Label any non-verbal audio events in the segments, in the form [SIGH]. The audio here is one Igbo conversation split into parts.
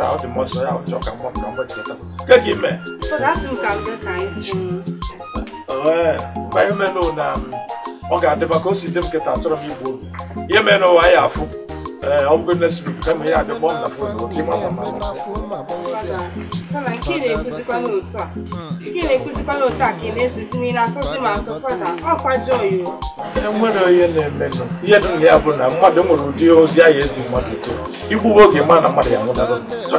nta ọ dị mmụọ nsọ ya ọchọ ka mmụọ ka mmụọ chikọta ke ka ee mgba ihe menụ na ọ ga-adịba ka o si dị m nketa achọrọ m igbu obi ihe mere n'ụwa ya afụ ee ọ bụgo nesiri m kama ihe na fon oke ịma ma ma enwere na-emenụ ihe dị ya bụ na mmadụ nwere ụdị ozi ezi mmadụ oge ma na mmadụ ya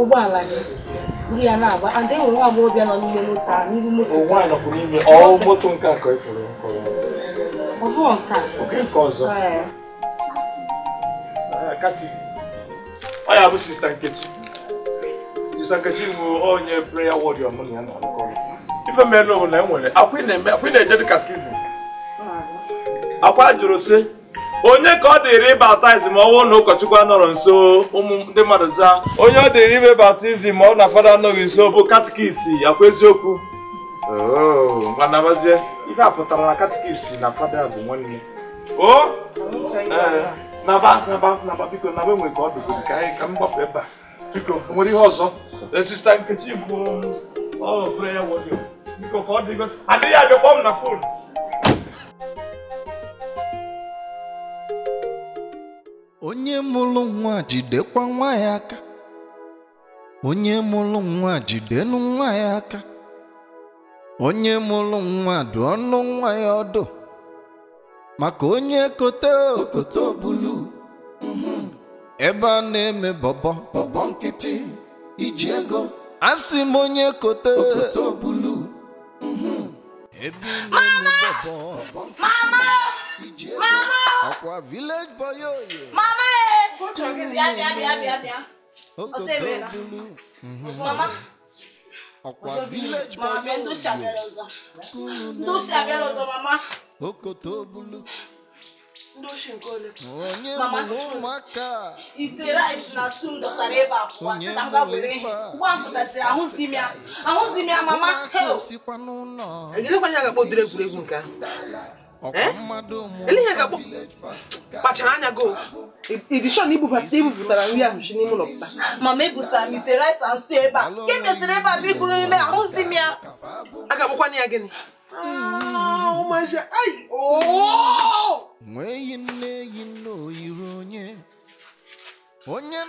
ụgbọala gị buru ya na-agba and enwere nwa agbọghọbịa nọ n'ime moto a n'ihu moto moto nke a ka ị fụrụ ọ bụ nke nke ọzọ ah, ọ ya bụ sista nkechi sista nkechi bụ onye prayer warrior mụ na ya na-akọ ife mere na enwere akwa ị na-eje dị katkizim akwa jụrụ sị onye ka ọ dịrị baptizim ọnwụ na ụkọchukwu anọrọ nso ụmụ ndị mmadụ zaa onye ọ dịrị ime baptizim ọ na fada anọghị nso bụ katikisi akwa eziokwu oh, manabazie ife a pụtara na katikisi na fada bụ nwanne o naba naba naba biko naba enwe ka ọ dụgoro ka anyị ka m ebe a biko nwere ihe ọzọ sista nkechi bụ ọ prayer warrior biko ka ọ dịgo adịghị abịa kpọm na fon onye mụrụ nwa jidekwa nwa ya aka onye mụrụ nwa jidenụ nwa ya aka onye mụrụ nwa dụ ọnụ nwa ya ọdụ maka onye kote okoto bulu ebe a na-eme bọbọ bọbọ nkịtị iji ego asị m onye kote okoto bulu ebe a na-eme bọbọ bọbọ nkịtị Mama. village boy Mama eh. Oh, Go Mama. Akwa village boy Mama ndo Ndo mama. Okoto bulu. Mama Itera isina stum do sareba kwa sita mga bure. Kwa mputa sira ahuzimia. Ahuzimia mama. Heo. Egele kwa nyaga bodre gure gunka. Dala. ihe ga-akpọ kpachara anya go idishọn ibupụtara nri ahụ si n'ime ụlọ pụta mama ebusara m ite rice and ebe a nke mesịrị ebe a bụ iguru nne ahụzi m ya a ga-akpọkwana ya gịnị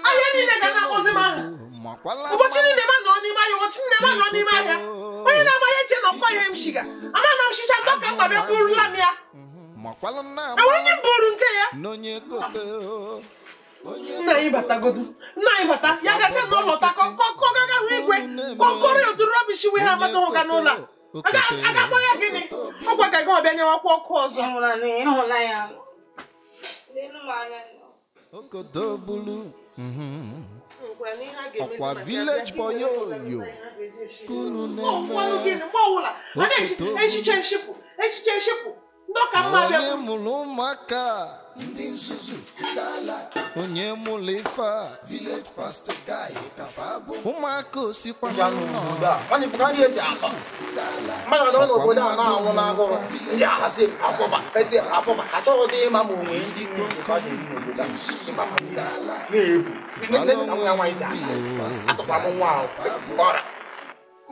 ahịa niile ga na-akpọzi m ahụ ụbọchị niile ma nọrọ n'ime ahịa ụbọchị nne ma nọrọ n'ime ahịa onye na-amaghị eche na ọkwa ihe m shiga ama na m shicha dọka mkpa bịa kpụrụla m ya mhm. enwere onye bụrụ nke ya nna anyị batagodu nna anyị bata ya gacha n'ụlọ ta kọkọgaga hụ igwe kọkọrọ ya oduru rọbishi we ha amata ụga n'ụlọ a ga-akpọ ya gịnị ọgwa ka gị ọbịa nyewakwa ọkụ ọzọ okodo ọkwa village boy oyo kunu na-eme Ndoka mmabe. Onye mụrụ ụmụaka. Ndị nzuzu gala. Onye mụrụ ife Village pastor guy kafa abụ. Ụmụaka osikwa na nnọọ. Nwanne bụ ka ndị esi akọ. Mmadụ ọdọ n'obodo a na-anwụ n'agụrụ. Ndị ahasị afọba. Pesi afọba. Achọghị dị ịma ma onwe isi ike ụka dị n'obodo a. Na-ebu. Nne m na nwa nwa isi acha. Atụkwa m nwa ahụ. Ọra. onye na-abịa n'okpuru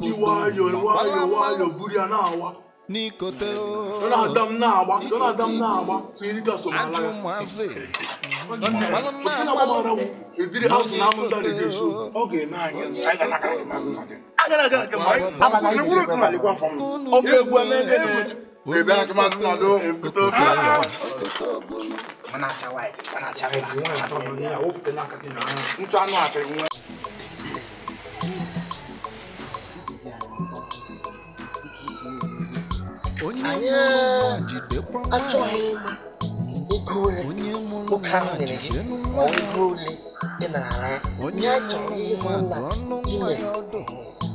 nwayọọ nwayọọ nwayọọ buru ya na-awa n'ikote na-ada m na-agba na-ada m na-agba tinyere ka somalaya na-agbamara m ebiri azụ ọ na aga aga aga aga aga aga aga aga aga aga aga aga aga aga aga Ebe a tuma tuma do ekuto fi. Mana chawa e, mana chawa e. Nwa ato no ni awo pete na kati na. Ntu anu ate nwa. Anyị achọghị ego ole ụka ahụ nyere gị ma ọ ego ole ị nara ya. Anyị achọghị ihe na inwere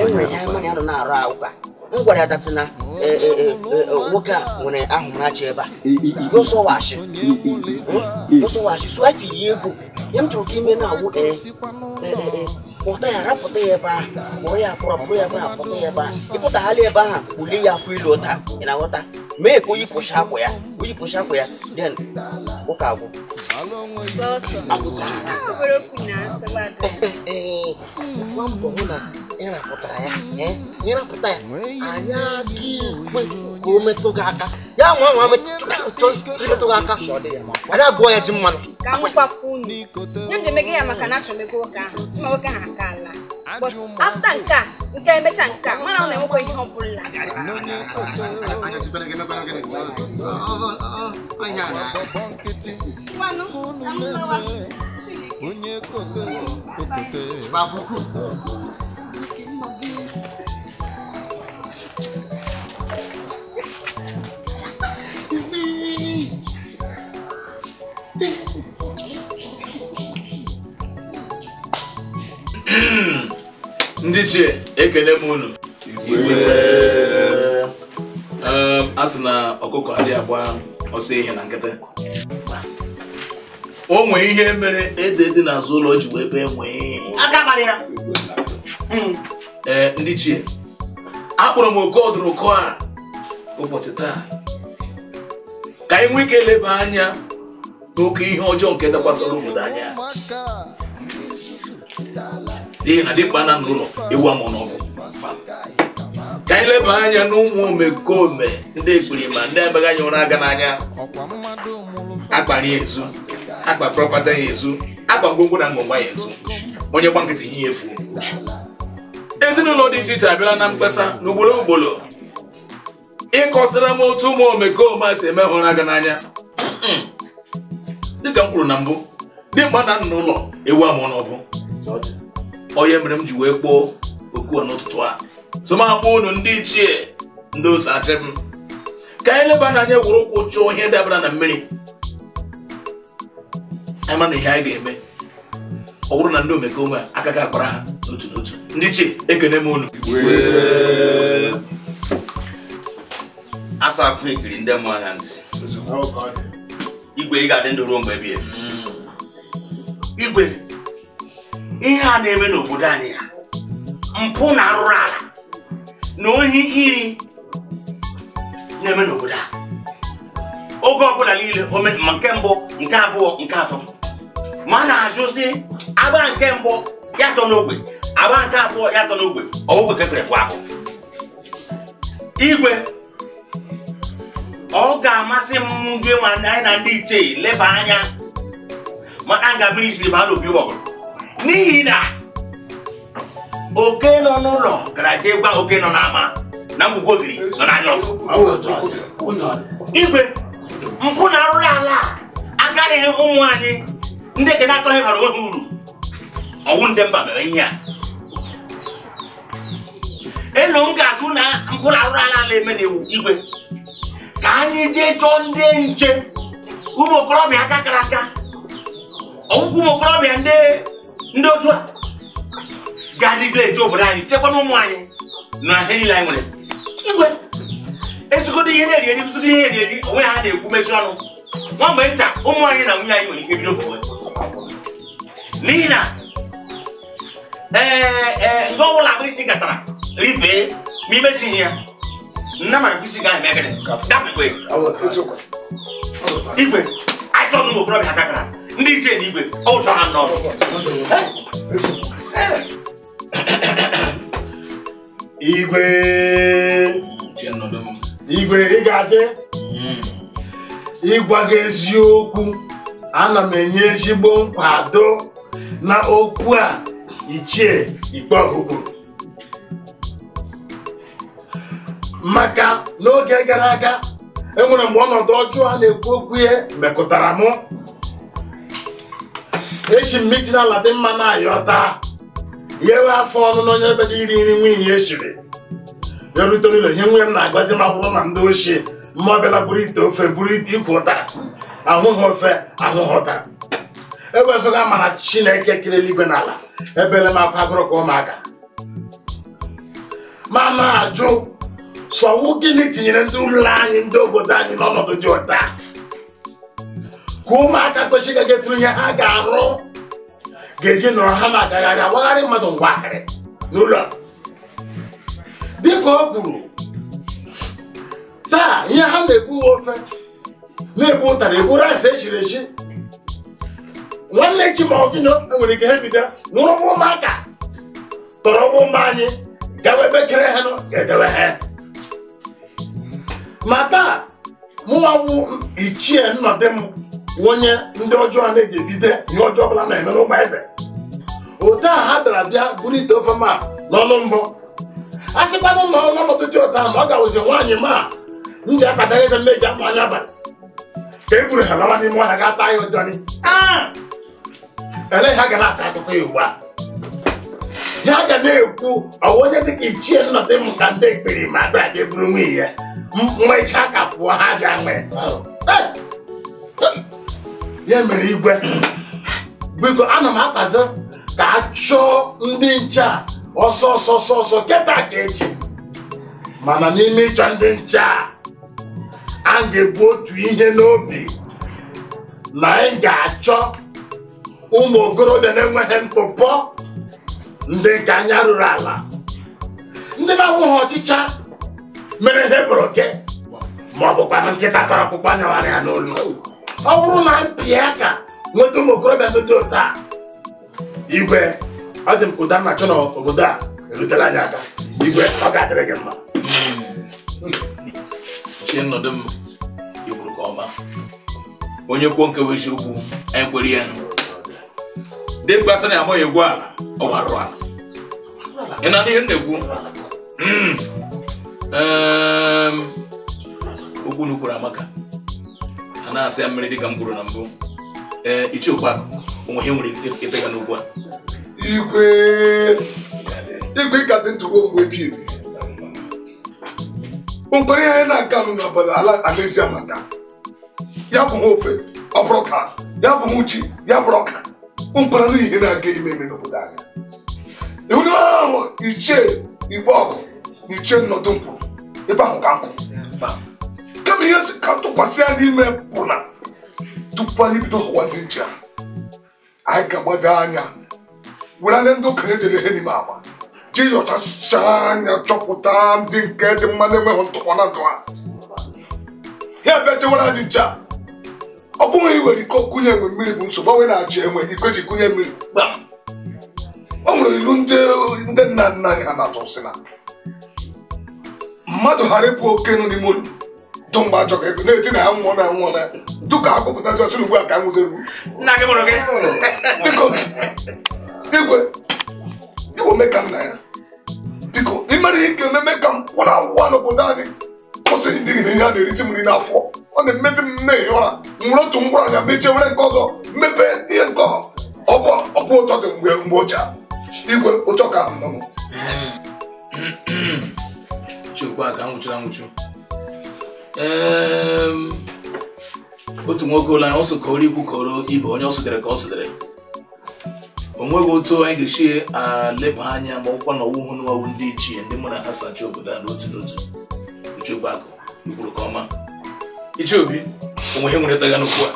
enwere ihe mmanụ ya na-arụ ụka m gwara ya na nwoke a nwere ahụmahụ ebe a gosọwachi gosọwachi sụọ tiri ego ya m chọrọ ka ime na agwụ kpọta ya rapụta ya ebe ahụ kpọrọ ya kpọrọ pụrụ ya ebe ahụ ya ebe ahụ ịpụtagharị ebe ahụ bulie ya afọ ilu ụta ị na-aghọta me ko yi push haku ya ko yi push haku ya then ko ka go so so aburo kuna sabata eh mambo una ina putara ya eh ina putara anya ki ko metu ga aka ya nwa nwa me metu ga aka ada go ya jimman ka mu pa kuni nyam de mege ya maka na chọ mege oka ma oka ha kala but after nka nke emecha nka mana ọ na-enwekwa ihe ọ bụla parang Onye Ndị ekele m unu. Ehm, a sị na ọkụkọ adịghị agba ọsọ ihe na nkịtị o nwee ihe mere ede dị n'azụ ụlọ ji wee bee nwee hmm. ee ndị chie akpọrọ m oke ọdụrụkọ a ụbọchị taa ka anyị nwee ike leba anya n'oke ihe ọjọọ nke dakwasara obodo anya, n'ihi na dịkpa na n'ụlọ ewu amụ n'ọgụ ka anyị leba anya n'ụmụ omekome ndị ekperima ndị abaghị anya ụra aga n'anya akpara ya ezu akpa prọpata ya ezu akpa ngwongwo na ngwongwa ya ezu onye gba nkịtị ihe efu ezinụlọ dị iche iche abịala na mkpesa n'ugboro ugboro ịkọsịra m otu ụmụ omekome si eme ụra aga n'anya dịka m kwuru na mbụ dimkpa na nna ụlọ ewu amụ n'ọbụ onye mere m ji wee kpoo okwu n'ụtụtụ a tụmakpọ unu ndị ichie ndị osachi m ka anyị leba n'anya gwụrụ ụkwụ chụọ ihe dabara na mmiri anyị mana ihe anyị ga-eme ọ bụrụ na ndị omekome aka ga akpara ha n'otu n'otu ndị ichie ekene m unu asa akụ ekiri ndị mmụọ ha ntị igwe ị ga-adị ndụ ruo mgbe bie igwe ihe a na-eme n'obodo anyị ya mpụ na arụrụ ala na ohi iri na-eme n'obodo a oge ọbụla niile ma nke mbụ nke abụọ nke atọ ma na-ajụzi agba nke mbụ ya tọ n'ogbe agba nke abụọ ya tọ n'ogbe ọgwụgwe ka ekere bụ ahụ igwe ọ ga-amasị m gị anyị na ndị ichie leba anya maka nga mmiri siri baa n'obi ụgbọgụrụ n'ihi na oke nọ n'ụlọ gara jee gwa oke nọ n'ama na mgbugwo ogiri nọ n'anya ọzọ igwe mpụ na arụrụ ala akarịghị ụmụ anyị ndị ekene atọghị bara onwe ha uru ọnwụ ndị mba mere ihe a elu m ga-atụ na mpụ na arụrụ ala ala eme na iwu igwe ka anyị jee chọọ ndị nche ụmụ okorobịa aka kara aka ọgwụkwụ ụmụ okorobịa ndị otu a gari ga eji obodo anyị chekwa n'ụmụ anyị na ihe niile anyị nwere igwe ezigodo ihe na-eri eri ụzigo ihe na-eri eri onwe ha na-ekwu mezi ọnụ nwa mgbe nta ụmụ anyị na nwunye anyị nwere ike bido ofuwe n'ihi na ee nke ọbụla agba isi katara rifee ma imesi ihe ya nna mara bụ isi ga ahụ megịrị dapụkwe igwe ajọ n'ụmụ okorobịa kakara ndị ichie na igwe ọ chọrọ ha n'ọrụ igwe igwe ị ga-adị ịgwa gị eziokwu ana m enye ezigbo nkwado na okwu a ichie ikpe ọgụgụ maka n'oge gara aga enwere mgbe ọnọdụ ọjọọ a na-ekwu okwu ihe mekụtara mụ echi m mitin ala dị mma na ayọta nyewe afọ ọnụ na onye ebeda iri nri nwunye echiri ya rute n'ụlọ ihe nwunye m na-agọzi ma bụrụ na ndị ochie mma ọbịala buru ite ofe buru ite ikwu ụtara ahụghị ofe ahụghị ụtara ewezoga mara chineke kere eluigwe na ala ebele m akwa agụrụ ka ụmụaka ma na-ajụ sọwụ gịnị tinyere ndị ụlọ anyị ndị obodo anyị n'ọnọdụ dị ụta ka ụmụaka kwesịrị ga-egetụrụ ihe ha ga-arụ ga eji nọrọ ha ma agagharị agbagharị mmadụ ngwa akarị n'ụlọ dịka ọ kwuru taa ihe ha na ebu uwe ofe na ebu ụtara egburu asị echiri echi nwanne chi ma ọgịnọ e nwere ike ha bido nwụrụwa ụmụaka tọrọwa ụmụ anyị gawa kere ha nọ ga-edewe ha ma taa mụnwawụ ichie nnọdị m onye ndị ọjọọ na ebido ihe ọjọọ ọbụla na-eme eze otu a ha dara bịa buru ite ofe ma n'ọnụ mbọ a sịkwanụ na ọnọdụ dị ụta na ọ ga-awụzi nwaanyị ma m ji akpatara eze mmeji akpa anya abalị ka e buru ha lawa n'ime ọhịa ga taa ya ụjọni ah! eleghị ha ga na-ata akụkọ ya ugbu a ha ga na-ekwu ọwa onye dịka ichie nnọdụ m ka ndị ekpere ma abịa abịa buru nwunye ya mmecha ka pụọ ha bịa nwee ya mere igwe biko ana m akwado ka a chụọ ndị nche a ọsọ ọsọ ọsọ ọsọ keta ka eji mana n'ime ịchọ ndị nche a a ga-ebu otu ihe n'obi na anyị ga-achọ ụmụ okorobịa na-enweghị ntụpọ ndị nke anya ruru ala ndị na-awụghị ọchịcha mere ihe bụrụ gị ma ọ bụkwa nkịta tara ọkpụkpa nyawara ya n'olu ọ bụrụ na mpịa ka nweta ụmụ okorobịa ndị dị ụta igwe ọ dị m ụda m achọ n'obodo a erutela anyị aka igwe ọ ga-adịrị gị mma hmm. chi nọdụ m ikwuru ka ọma onye kwuo nke bụ eziokwu anyị kwere ya dị mgbe asị na ya amaghị egwu ala ọ gwarụrụ ị na ihe m na-ekwu hmm. ehm, okwu n'ukwuru amaka a na-asị ya mmiri dịka m kwuru na mbụ ee ichie okpakụ onwe ihe nwere ike ịtega n'ugwu a igwe ịkadị dị ruo mgbe ebi ebi mgbere ihe anyị na-aga nụ n'obodo ala alaezi amaka ya bụ ofe ọ bụrụ ka ya bụ ha uchi ya bụrụ ọka mgbara na ihe na-aga ime eme n'obodo anyị iwu ahụ iche igbe ọgụ na ichie nnọdụ nkwuru ebe ahụ ka nkwụ kama ihe si ka tụkwasị ya n'ime bụ na tupu anyị bido hụwa ndị nche ahụ anyị ga-agbado anya were anya ndị okenye dere ihe n'ime agba ji yọchachaa anya chọpụta ndị nke dị mma na-enweghị ntụkwa na ndụ ha ya bịa chewere anyị nche a ọ bụghị iwere iko kụnye enwe mmiri bụ nsogbu onwe na-achị enwe iko ji kụnye mmiri o nwere ilu ndị nna nna anyị ha na-atụ na mmadụ ghara ịbụ oke nụ n'ime olu. dụ mgbe ajọ ka ego na-eti na ya nwụọ na nwụọ na duka akpọpụtazi ọchụ ugbu a ka nwụziru biko igwe igwe mee ka nna ya biko imere ihe ike ememe ka m kwụrụ awụwa n'obodo anyị kwụsịrị n'ihi na ihe a na-erisi m nri n'afọ ọ na-emezi m nne ụra nwere otu ngwụrụ anya mechie were nke ọzọ mepee ihe nke ọbụ ụtọ dị mgbe mgbe ụcha igwe ụchọ ka m nọ otu nwoke ụlọ anyị ọsọ kọrọ ikwu kọrọ ibe onye ọ sụdere ka ọ sụdere o nweghị otu anyị ga-esi aleba anya ma ọkwa na ọwụhụ n'ọwụ ndị ichie ndị mụ na ha sacha obodo a n'otu n'otu ichiobi akụ ikwuru ka ọma ichiobi onwe ihe nwere taga n'okwu a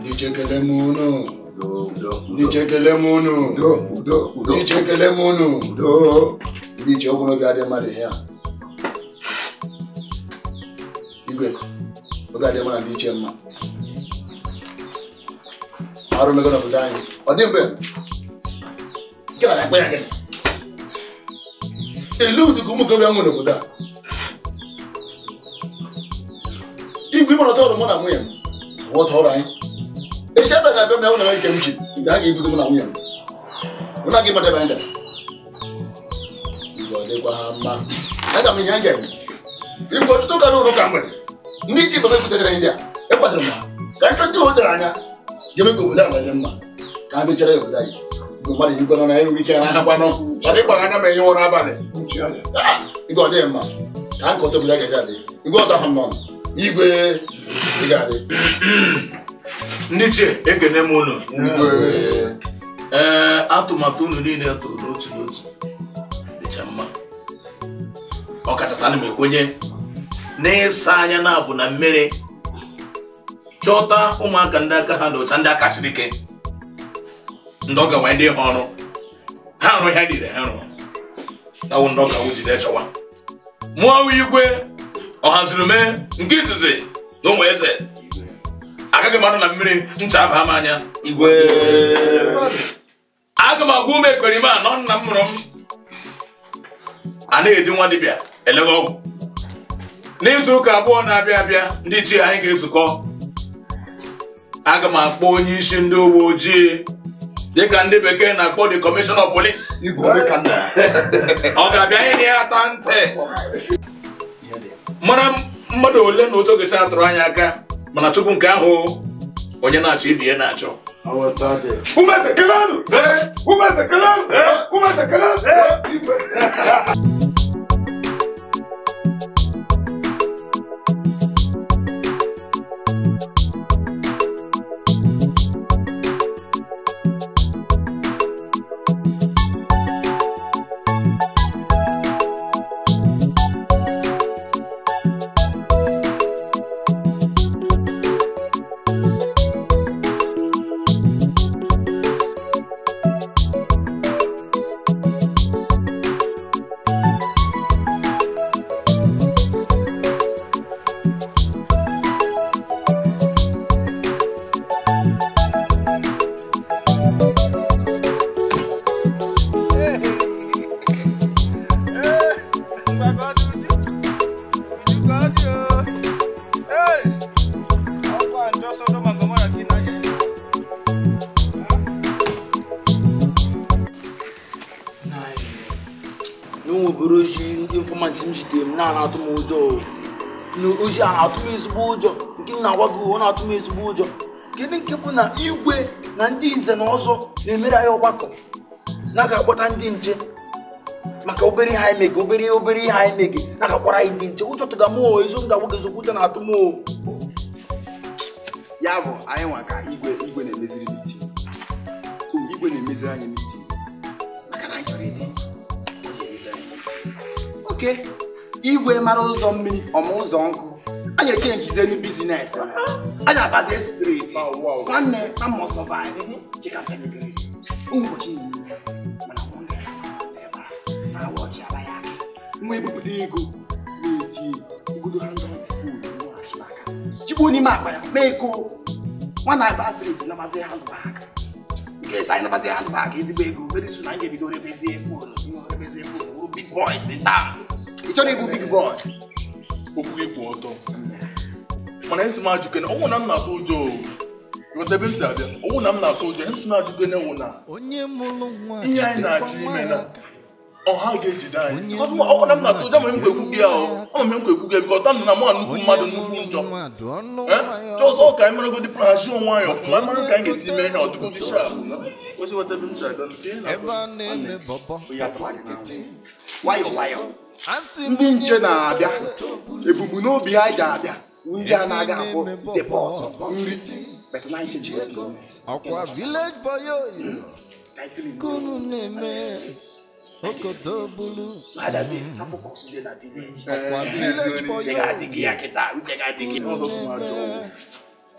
ndị chekele m unu ndị chekele m unu ndị chekele m unu dị iche ọgwụ n'obi adịghị mmadụ ihe a igwe oge adịghị mmadụ dị iche mma arụ mego n'obodo anyị ọ dị mgbe nke na akpa ya gị ele ụmụ okorobịa n'obodo a igwe ọtọ ọrụ mụ na nwunye m ọtọ ọrụ anyị echi abịa na abịa ya nwere ike m ji mgbe a ga-ebido mụ na nwunye m na gị mmadụ ebe anyị gara dịkwa mma aga m ihe a ga-eme ibu ọtụtụ ụka n'ụlọ ụka mgbede ndị chi baba butere ndị a India. m ka nke ndị dara anya ga-eme ka obodo abanye mma ka a mechara obodo anyị bụ mmadụ ji gwanọ na enwe ike na ahakwanụ ọ dị gbara anya ma enye ụra abalị igwe ọ dịghị mma ka nke ọtọ obodo a ga-eji adị igwe ọtọ ahụ nọ igwe ga-adị ndị chi ekene m unu ee atụmatụ unu niile tụrụ n'otu n'otu kacha mma ọkachasị ana m ekwenye n'ịsa anya na abụ na mmiri chọta ụmụaka ndị aka ha dị ndị aka siri ike ndị ọ ndị ha ọrụ ha arụ ha dịrị ha rụrụ awụ ndị ọka jide chọwa mụọ igwe ọhaziri mee nke izizi na ụmụ eze agaghị mmadụ na mmiri ncha aba m anya igwe aga m agwa ụmụ ekperima anọ nna m mụrụ m anaghị eji nwa dibịa eleghị ọgwụ n'izu ụka abụọ na-abịa abịa ndị ji anyị ga-ezukọ aga m akpọ onye isi ndị uwe ojii dịka ndị bekee na-akpọ the kọmishọna of ọ ga-abịa ihe na ya ata ntị mara mmadụ ole na otu ga atụrụ anya aka mana tupu nke ahụ onye na-achọ ibi ihe na-achọ umeze kelenu umeze kelenu umeze kelenu ozi a na atụm ezigbo ụjọ nke m na-agwa gị uwe na atụm ezigbo ụjọ kedu nke bụ na igwe na ndị nze na ọzọ na-emere anyị ọgbakọ na ga akpọta ndị nche maka obere ihe anyị mege obere obere ihe anyị mege na-aga akpọrọ anyị ndị nche ụjọ tụga m ezigbo ga-agwa gị ezigbo ụjọ na-atụ m ya bụ anyị nwa ka igwe na-emeziri mitin igwe na-emeziri anyị n'iti maka na anyị chọrọ ịdị igwe mara ụzọ mmiri ọma ụzọ nkụ And anyị echenjizi elu bizines anyị abazie straight nwanne na must survive chika penyegrị ụbọchị niile mana nwa gara ebe a na awa ọchị abaghị aka nwa ebupụta ego na-eti igodo ha ndọ chigbuo n'ime akpa ya mee ko nwa na-agba straight nabazi handbag nke I anyị nabazi handbag ezigbo ego very soon anyị ga-ebido rebezie fon rebezie fon big boys in town ị chọrọ ịbụ big boy okwu ịkwụ ọtọ mana esi m ajụkene ọnwụ na m na-atụ ụjọ ebe m abịa ọnwụ na m na-atụ ụjọ esi m ajụkene wụ na ihe anyị na-achọ ime na ọha ga-ejide anyị ọnwụ na m na-atụ ụjọ ma m kwekwu gị ahụ ama m nkwekwu gị bikọta na m nnukwu mmadụ nnukwu njọ eh? chọzọ ka anyị meragodi prahazi onwe anyị ọfụma mara ka anyị ga-esi mee ihe ọdụgo gị shapụ osi weta ebe m si abịa na-akpọ ya ndị nche na-abịa ebumnobi ha ji abịa ndị a na-aga afụ depọt nri ọkwa village boy kunu na-eme okodo bulu ọkwa [LAUGHS] village boy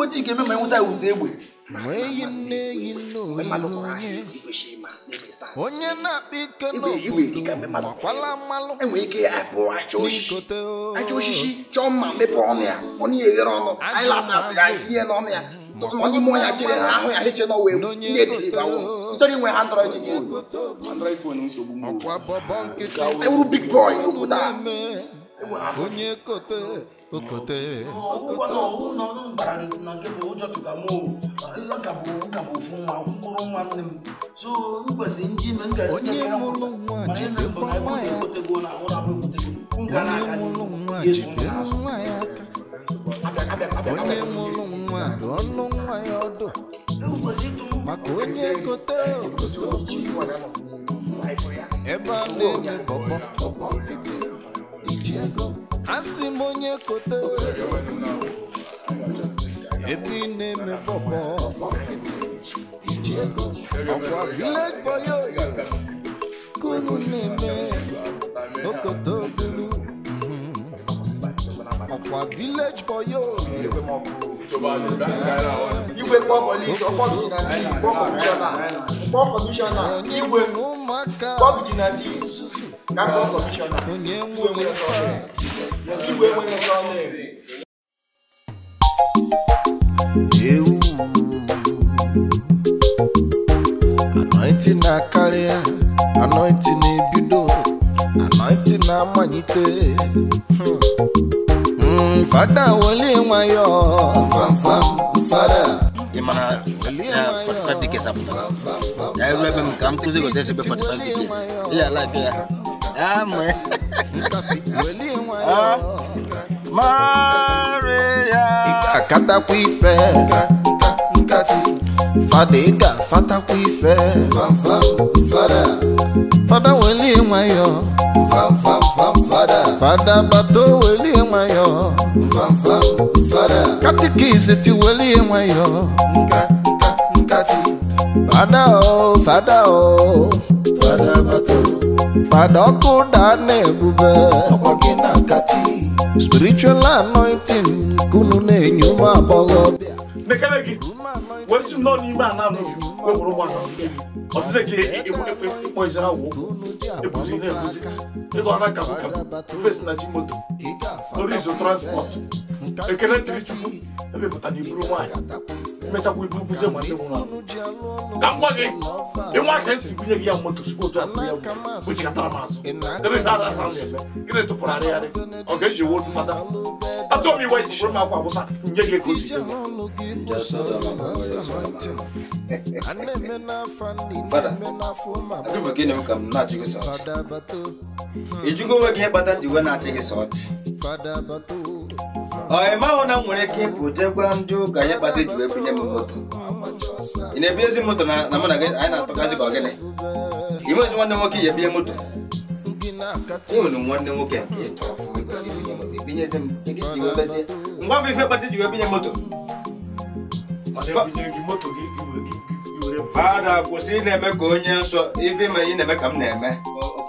ụmụ ojii ga-eme ma enweta ụda egbe onye na-akpa ike ike apụ aja osisi chọọ mma mepee ọnụ ya ọnụ ya eghere ọnụ anyị ya tinye n'ọnụ ya onye ime ọnya chere ha ahụ ya heche n'ọwa egwu ihe chọrọ inwe ha ndọrọ ewuru big boy n'obodo a okote akwụkwọ na ọwụ na ọrụ mbara na nke bụ ụjọ tụkamụ ịgakabụ ụkabụ ofu nwa mkpụrụ nwa nne m so nkwesị nji na ngazi onye mụrụ nwa jide nwa ya onye mụrụ nwa jide nwa ya aka onye mụrụ nwa dụ ọnụ nwa ya ọdụ maka onye gote ebe a na-eme bọbọ iji ego asị m onye kote ebe ị na-eme bọbọ ọkwa village boy oyo kunu na-eme okoto bulu ọkwa mhm. village boy oyo igwe kpọọ polisi ọkpọ gị na di kpọọ kọmishọna kpọọ kọmishọna igwe Gabon commissioner, ìwé wẹ́rẹ́ sọ̀lẹ̀, ìwé wẹ́rẹ́ sọ̀lẹ̀. anointing a akarịa anointing a ebido anointing a amalite hmm. hmm, Fada weli nwayọ, my fada. Ị mana 45 dikes apụtara. Ya ebe m ka m kụzi gote ebe 45 dikes. Ị ya ala ike amwe Maria akata kuife nkati fadega fata kuife fada fada weli nwayo fada bato weli nwayo katikisi ti weli nwayo nkati fada o fada o fada bato padokudane ebube ọgbọ gị na nkati spiritual anointing kunu na-enye ụmụ agbọghọ mekere gị wesi nọ n'ime ana wewuru nwa ọtụzị gị ịkpọ izere awụ ebuzi na-ebuzi ego ọ na-akabụ kabụ na chi moto orizo transport ekele dịrị chukwu emepụta na iburu nwaanyị emechakwa ibu buzie nwanne m nwaanyị ka m gwa gị ịnwa ka gị ya moto sikwa otu akpụ ya kpuchikatara m azụ ebe asa na-eme gị na-etụpụrụ arịgharị ọ ga-eji fada m iwe ji bụrụ m akwa nye gị ego onwe gị na-achị gị sọ ọchị ọ ịmahụ na m nwere ike ịpụ jekwa ndị ụka anyị kpata ji wee bunye m moto ị na-ebi ezi moto na mụ na anyị na-atọgasị ka ọ gịnị inwe ezi nwanne nwoke ya ebinye moto unu nwanne nwoke ngwa afọ ife kpata ji wee binye moto fada kwụsị ị na-eme ka onye nsọ ife ma ị na-eme ka m na-eme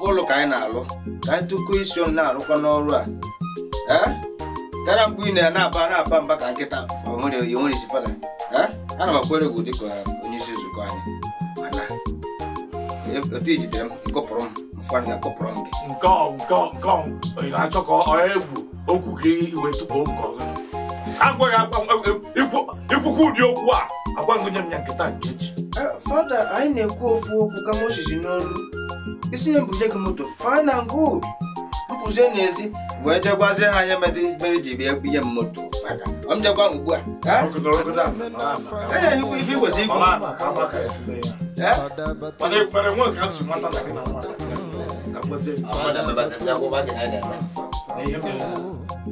ụlọ ka anyị na-alụ ka anyị tụkọ isi ọnụ na-arụkọ n'ọrụ a tara mkpu ị na-aba na-aba mba ka nkịta onwere isi fada ana m akwere gị dịka onye isi nzukọ anyị e, otu ijidere m ịkọpụrụ m mfụanị ga-akọpụrụ m gị nke nke na-achọ ka ọ egwu okwu gị iwe tupu oge ikwukwu ụdị okwu a agwagụnye m ya nkịta nkechi eh, fada anyị na-ekwu ofu okwu kama osisi n'olu isi nye mbụnye gị moto fine and good pụzie n'ezi wee jegwazie ha ya mere ji bịa ihe mmoto ọ m jekwa ugbu a enyeghị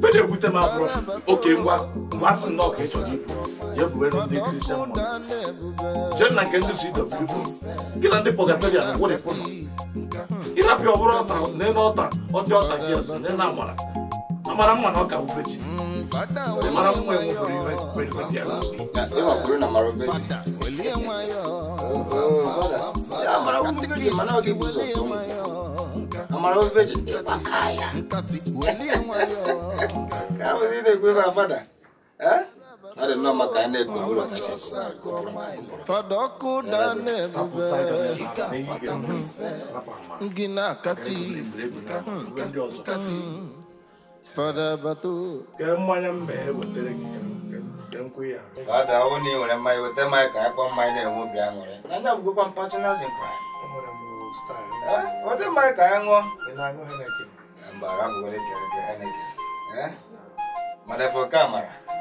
ife m abụrụ oke ngwa mgbe a sị na ọka ịchọrọ ibu jee bue ndị kristian na nke ndị si gị na ndị pọgatarian ịrapịa ọbụrụ ọta n'elu ọta ọdị ọta gị ọsọ n'elu amara amara mma na ọka wufechi mara mma enweburu ihe kwesịrị bịa na mara mana amara ofechi ịkpaka ya ka na-ekwe abada eh? That is not my kind of good. Fadoko Gina kati. Kati. Fada batu. Kemanya mbe wetere Kemkuya. oni ore mai wete mai ka kwa mai ne wo bia ngore. Nanya kwa mai ka ngo le ke ke Eh? kamera.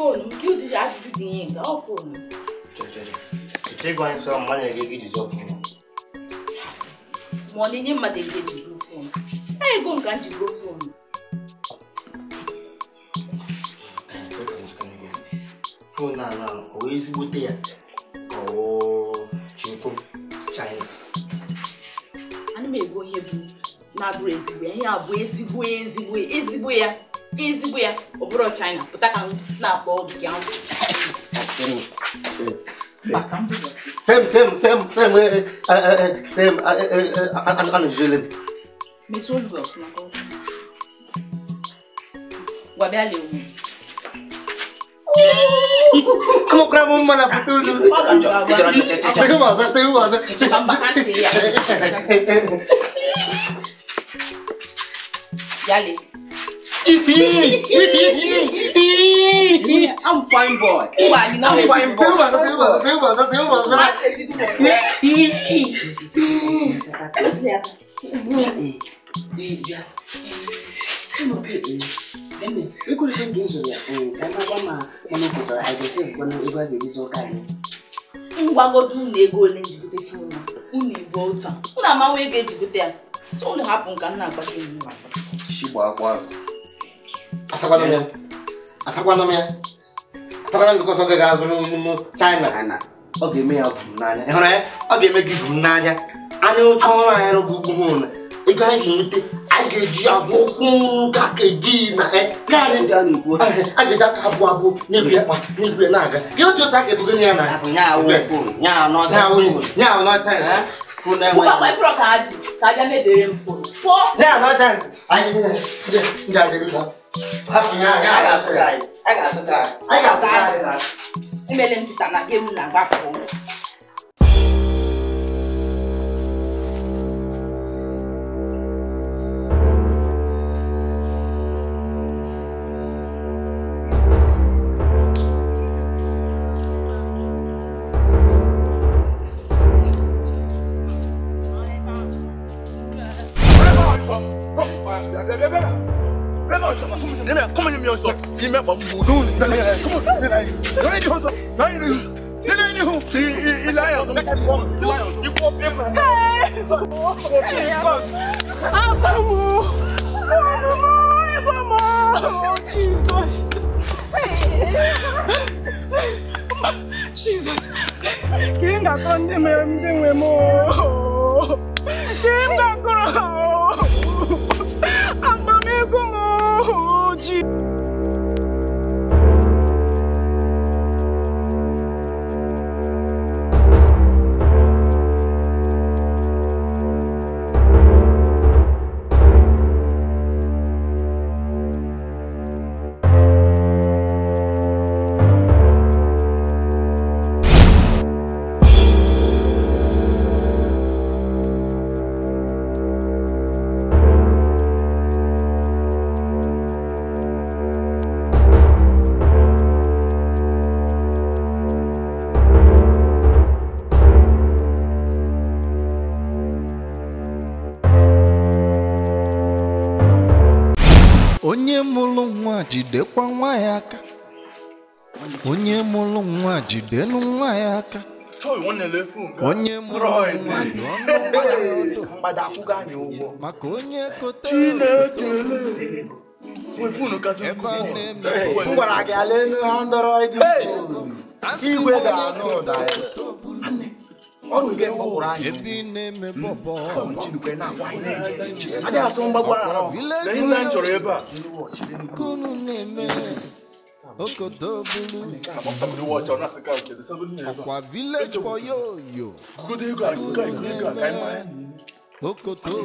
phone kí o di àjùjù di yín nǹkan ọ̀ phone. jẹjẹrẹ ìṣe gan sọ ọmọ yẹn gẹ́gẹ́ bíi sọ fún un. mọ̀ọ́lẹ́ yẹn máa dẹ̀gẹ́ jù ló fún un báyìí gò nǹkan jù ló fún un. fóònù àná òwe ezigbo tẹ̀yà ọ̀wọ́ chinkó china. anụ m ego ihe bụ na-abụrụ ezigbo ya ihe a bụ ezigbo ezigbo ezigbo ya ezigbo ya ọ bụrụ china pụta ka snap ọgụ ya Sem, sem, sem, sem, sem, anụjụlem. Metụ olu gị ọfụma ka ọ gwa bịa lewu. Amụkwara m mma na pụta olu. Sịgị m ọzọ, sịgị m ọzọ. Mba ka ntị ya. [LAUGHS] Yale. I'm fine boy. I'm fine boy. Ikú ló ń gbé ìṣòro ẹ̀ ẹ̀ ẹ̀ máa bá máa mọ́nà kòtò àìdẹ́sẹ̀ ìgbọ́nà ìbá gbèjì sọ́kà yìí. ngwagodo unu ego ole njigote fim na unu ibu otu a unu amanwe ego ejigote ya so unu hapụ nka nna agbata unu atakwana m ya atakwana m nke ọzọ gaghị azụrụ n'ime china ọ ga-eme ya ụtụ m n'anya ịhụrụ ya ọ ga-eme gị ụtụ m n'anya anya oche ọrụ anyị rụbụ ugwu ego anyị ga-enweta ageji azụkwụ ka keji na karị ageja ka abụ abụ n'ebi akpa n'ebi na-aga gị otu otu aka ebugo ya na ya nọsa Yeah, no sense. I need to. Yeah, yeah, yeah. I got to die. I got to die. I got to die. Imele mtana ewu na gbapọ. jidekwa nwa ya aka onye mụrụ nwa jidenụ nwa ya aka onye mụrụ nwa dị ọnụ maka onye kotere m gwara gị ala elu ha ndọrọ igwe ga-anụ ụda ya ọrụ nke mgbagburu anyị hmm. aja asụ mgbagburu ahụ nne m chọrọ ebe a Okodo bulu. Akwa village boyo yo. Okodo bulu.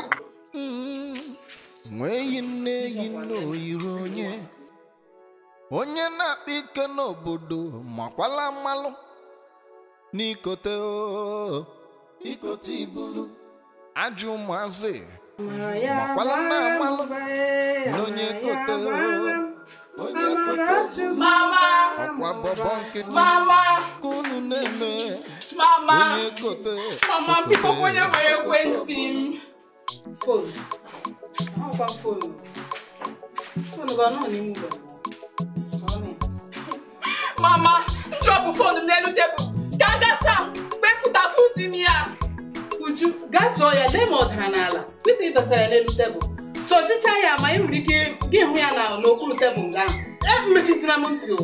nweyi nneyi n'oyiri onye onye na-akpa ike n'obodo makwala mmalụ n'ikote ikote ibulu ajụ ụmụazị makwala na mmalụ n'onye kote o onye kote ọkwa bọbọ nkịtị ka unu na-eme onye kote mama onye ekwentị mama nchọpụ fonu m n'elu tebụl gagasa gasa kpepụta m ya uju gaa chọọ ya lee ma ọ dara n'ala isi ị dọsara n'elu tebụl chọchịcha ya ma ị nwere ike gị hụ ya n'okpuru tebụl nga ahụ e, m ntị o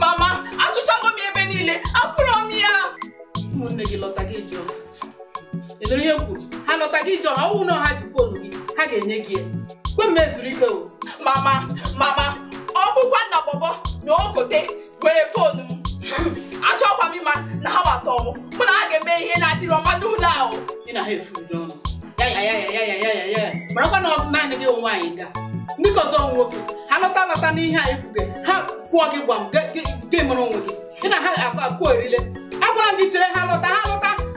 mama achụchago m ebe niile afụrọ m ya ụmụnne gị lọta gị jụọ edere ihe kwuru ha lọta gị jọ ọha ọnwụ na ọha ji fonu gị ha ga-enye gị ya kwe m ezuru ike o mama mama ọ bụkwa bọbọ na ogote were foonu m achọkwa m ịma na ha watọ m mụ ha ga-eme ihe na-adịrị ọma n'ụlọ ahụ ị na ha efuru ya marakwa na naanị gị onwe anyị ndị nwoke ha lọta lọta n'ihe ha kwụọ gị gị mụrụ onwe gị ị na ha akụ erile agwara chere ha lọta ha lọta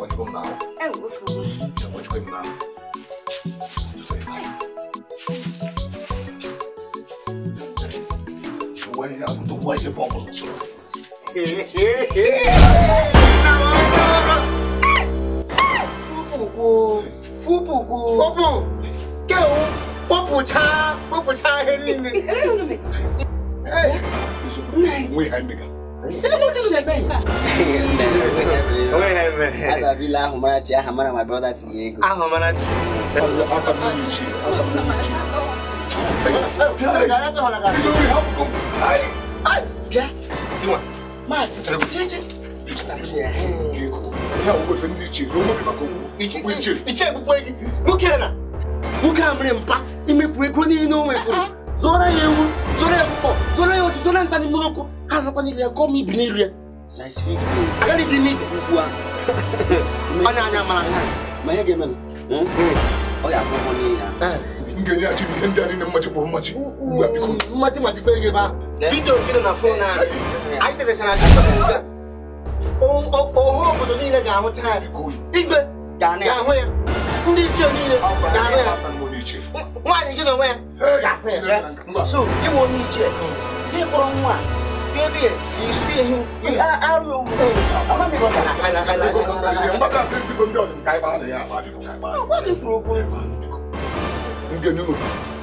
what you come now. Hey, what you come? Say what you come now. You say now. Why I'm the why you bubble? Hey, hey, hey. Fubu, fubu, fubu. Go, fubu cha, fubu cha. Hey, hey. Wait, hey, nigga. Hey, hey, hey. Ababila Humarachi, Ahamara, my brother Tiego. Ahamarachi. nwoke a mere mpa imefu ego niile o nwefuru zụọrọ ya ewu zụọrọ ya ọkụkọ zụọrọ ya otu zụọrọ ya ha zụkwa n'iri ya gọọ m ibi n'iri ya size 50 akari di meat kukua [LAUGHS] ana ana malaka mahege mena hmm? hmm. oya akoko ni eh, na ngeni ati ngenda ni mmaji kwa mmaji ngwa biko mmaji mmaji kwa ngeba eh? video kile na phone na aise se sana kisa kuga o o o ho ko ni na ga ho ta biko igbe ga na ga ho ya ndị ichie niile ga ho ya nwaanyị gị na onwe ya ga ho ya so gị nwe onye ichie gị nwa baby, you see him. You are out of I'm not going to I'm not going to What is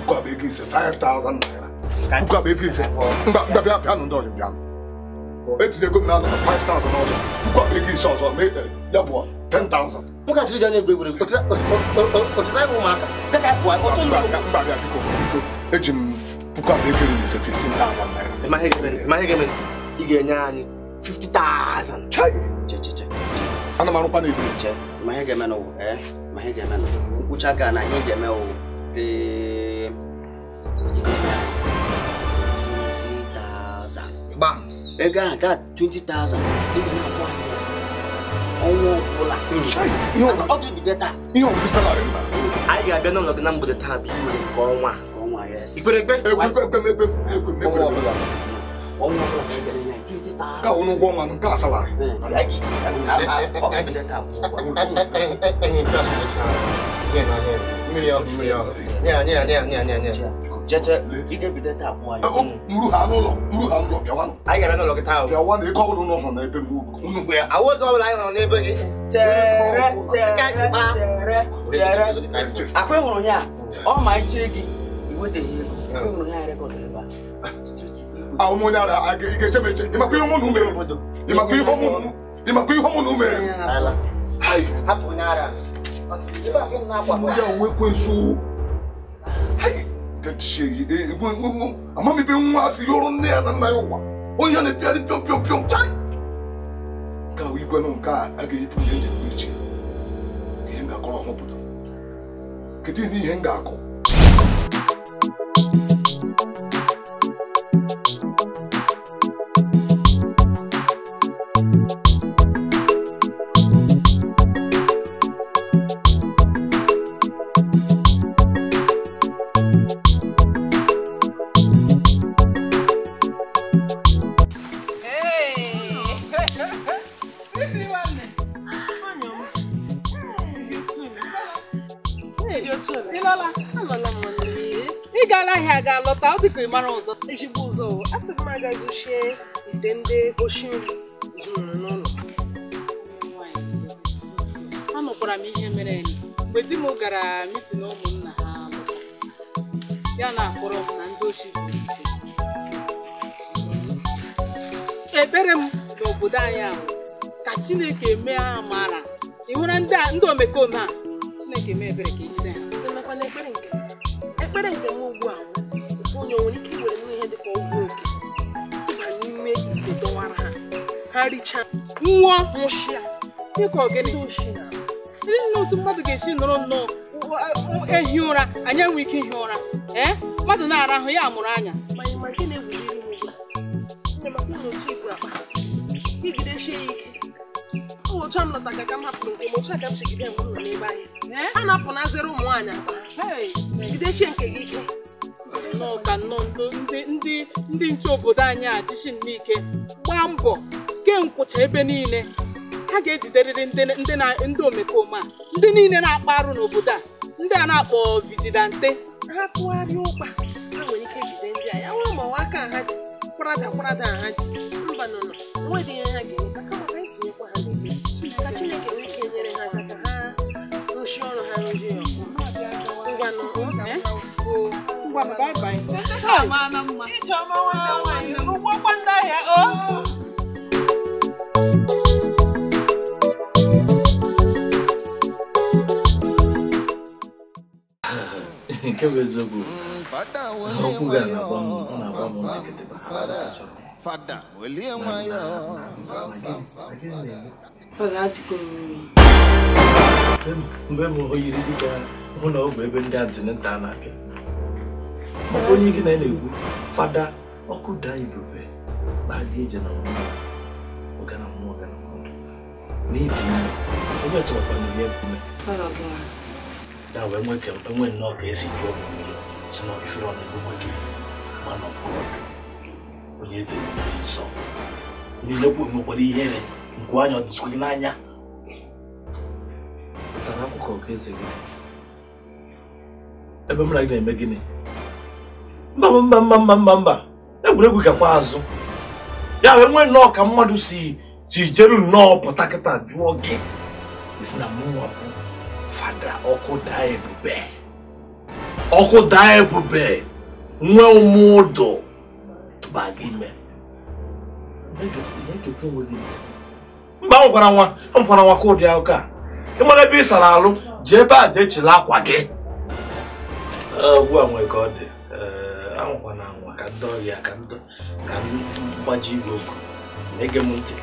Kwa begi se 5,000 naira. Kwa begi se. Mba mba bia bia ndo ndo bia. Eti de go me na 5,000 also. Kwa begi se also me ya bo 10,000. Muka tiri jani gbe gbe. Otisa otisa wo maka. Ka ka kwa oto yo. Mba bia biko biko. Ejim kwa begi se 15,000 naira ịmaghị gị ị ga-enye anyị 50,000 ana m arụkwa che ma ihe ga-eme n'ụwa ee eh, ma ihe ga-eme n'ụwa nkwụcha na ihe ga-eme ụwa ee 20,000 gbam 20,000 ị ga na-akwụ anyị ọnwa hmm. ọ ga-ebido taa ihe anyị ga-abịa n'ụlọ gị na mgbede taa bụ nke ọnwa ìpèrègbè ka wonu ko man ka salare jẹjẹ ike bi dẹta fún ayé. muru ha n'ụlọ muru ha n'ụlọ bịawa nọ. anyị gara n'ụlọ gị taa o. bịawa na ịkọ ọbụla ụlọ nọ n'ebe m unu gbe ya. awọ ọzọ ọbụla anyị nọ n'ebe gị. chere chere chere chere akwa ịhụrụ ya ọ ma echi gị. What the hell? Come on, I got the bath. Straight to you. Ah, ọmọ dára, ìkẹsẹ̀ méje. Ìmọ̀ pé ọmọ nù mẹ́rin. Ìmọ̀ pé ọmọ nù. Ìmọ̀ pé ọmọ nù mẹ́rin. Ayi. Hapụ n'ara. Mo yà òwe kwe so. Ayi. Gẹ̀dì ṣe yìí. Àmọ́ mi bí ń wá sí yọrọ ní ẹ̀ nana yóò wá. Ó yẹ ni píọ́ ni píọ́ píọ́ píọ́ chai. Nka o yikọ náà nka agaghị pụrụ ihe ndị ndị echi. Ihe m ga-akọrọ ọhụrụ pụta. Kedu ihe ihe m ga-akọ? Thank you. ta ọ dịka ịmara ọzọ ejigbo ụzọ asị m ite ndị oshi nri n'ụlọ anụkwara m ihe mere mgbe di m gara mitin ụmụnna ha ya na-akpọrọ m na ndị oshi ebere m n'obodo anyị ahụ ka chineke mee ha mara ndị omekome a chineke mee ebere ka ejide ha ekpere nke m ugbu a onye nwere ike iwere ihe dị ka ọgwụ oge dọba n'ime ite dọwara ha ha richaa Nwa nwụchịa dịka ọgịnị ndị nne otu mmadụ ga-esi nọrọ nnọọ ehi ụra anyị enwe ike ihi ụra ee mmadụ na ara ahụ, ya amụrụ anya igidesie ya ike otu a m lọta ka m hapụrụ nke m otu aga m si gide mgbe m n'ebe anyị. a na-apụnazịrị ụmụ nwaanyị aba jidechie nke gị ike nnọọ nnọọ ndị ndị ndị nche obodo anyị a jichi n'ike gbaa mbọ kee nkwụcha ebe niile ha ga-ejiderịrị ndị omekome a ndị niile na-akpa arụ n'obodo a ndị a na-akpọ vigilante ha tụgharịa ụkpa ha nwere ike jide ndị a ya nwee ma ọwa aka ha ji kwarada kwarada ha ji mba nọ nọ nwedị ihe ha ga-enweta kama ha anyị tinyekwa ha n'ebe ka Chineke nwee ike nyere ha aka ka ha rụchie ọrụ ha rụzie ọgwụ ngwanụ ngwa bye ndị ahịa nke bụ eziokwu okwu ga na-agba m na ha mgbe m o dịka hụ bụ ebe ndị na-abịa maka onye gị na ya na-ekwu fada ọkụ daa ibube na aga ije na mmụọ ọgana mmụọ ọgana mmadụ n'ibi ime onye ọchọkwara ya ebume ya wee nwee ka enwe nnọọ ka esi jụọ mmiri si na ifere ọ na-egbugbe gị mana ọbụrụ onye dere nsọ nilekwu nwekwara ihere nke anya ọdịsikwa gị n'anya tara akụkọ ka eze gị ebe m na gị na-eme gịnị mba mba mba mba mba mba egwuregwu gakwa azụ ya wee nwee nnọọ ka mmadụ si si jeru nnọọ pụta kịta jụọ gị isi na mụnwa bụ fada ọkụ daa ebube ọkụ daa ebube nwee ụmụ ụdụ tụba gị ime mba m gwara nwa m gwara nwa ka ụdị akụkọ a ị mara ebe ị sara alụ jee ebe a dechila akwa gị ugbu a nwee ka ọ dị anwụkwa na anwa ka ndị ọrịa ka mgbaji igwe oku na-ege m ntị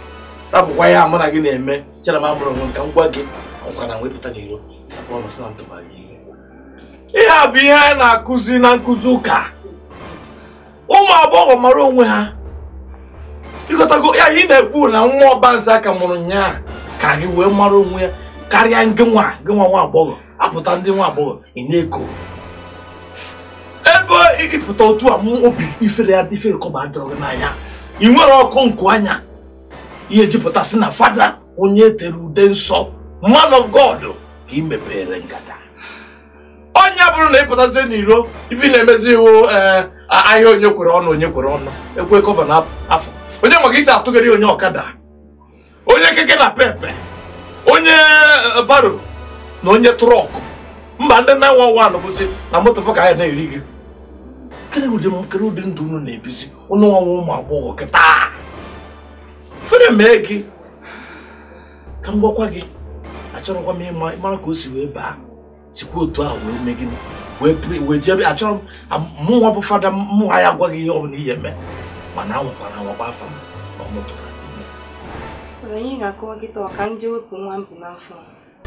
rapụkwa ya mụ na gị na-eme chere m amụrụ nwe nka ngwa gị ọkwa na wepụta n'iro sapọnụ si na ntụbara ihe ihe a bụ ihe anyị na-akụzi na nkụzi ụka ụmụ agbọghọ mara onwe ha ịkọtago ya ị na-ekwu na nwa ọbanze aka mụrụ nyaa ka anyị wee mara onwe ya karịa ndị nwa ndị nwa nwa agbọghọ apụta ndị nwa agbọghọ ị na-eko ebe ịpụta otu a obi ifere ya ifere kọba adịrọghị n'anya ị nwere ọkụ nkụ anya ihe jupụtasị na fada onye tere ude nsọ man of god ka ị mepere ngada onye bụrụ na ịpụtazie n'iro ibi na-emezi iwu eh, ahịa onye kwere ọnụ onye kwere ọnụ ekwe kọba na afọ onye maka isi atụgharị onye ọkada onye keke na pepe onye eh, baro na onye trọkụ mba ndị 911 bụzi na moto ka anyị na-eri gị kedu ụdị ndụ unu na-ebizi ụnụ nwanwe ụmụ agbọghọ kịta fere mee gị ka m gwakwa gị achọrọkwa m ịma mara ka o si wee baa sikwa otu ahụ wee mee gịnị wee jebe achọrọ m mụnwa bụ fada mụnwa ya agwaghị ihe ọ bụla ihe mee mana anwakwara anwakwa afa m na ọ mụtara ime anyị ga-akọwa gị taa ka m jee wepụ nwa m bụ n'afọ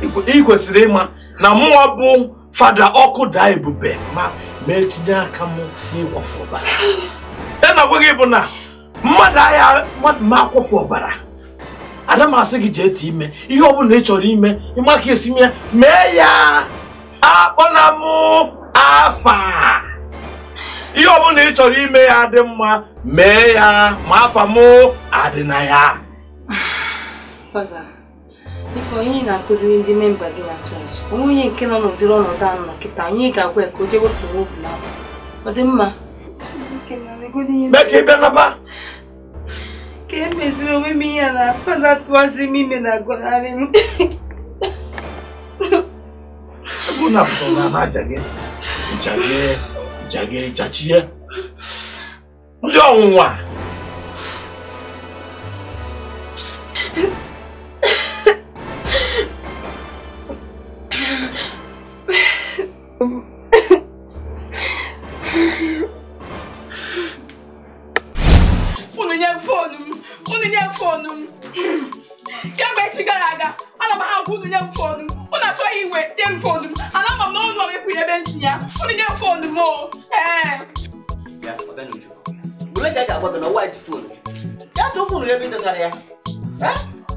ị kwesịrị ịma na mụnwa bụ fada ọkụ daa ebube ma ma etinye aka m n'ịkwọfe ọbara ya na gwa gị bụ na mmadụ agha mmadụ ma akwafu ọbara ada m asị gị jee ete ime ihe ọ bụla ị chọrọ ime ịma ka esi mee mee ya akpọna m afa ihe ọ bụla ị chọrọ ime ya dị mma mee ya ma afa m adị na ya [SIGHS] ife onye na-akụziri ndị memba gị na chọọchị onwe onye nke nọ n'ụdịrị ọnọdụ a nọ kịta anyị ga-agwa ya ka o jee wepụrụ obi n'afọ ọ dị mma ka emeziri e onwe m ihe na afa na-atụwazi m ime na agọnarị m ndị ọnwụnwa unu nye fonu m unu nye fonu m kemgbe echi gara aga ana m ahapụ unu nye m fonu m unu achọghị iwe nye m fonu m ana m na ụlọ mekwuru ebe ntinye ya unu nye m fonu m o ee Bule ka a ga-agwa gị na ọwa dị fonu ya tụọ fonu ebe ị dosara ya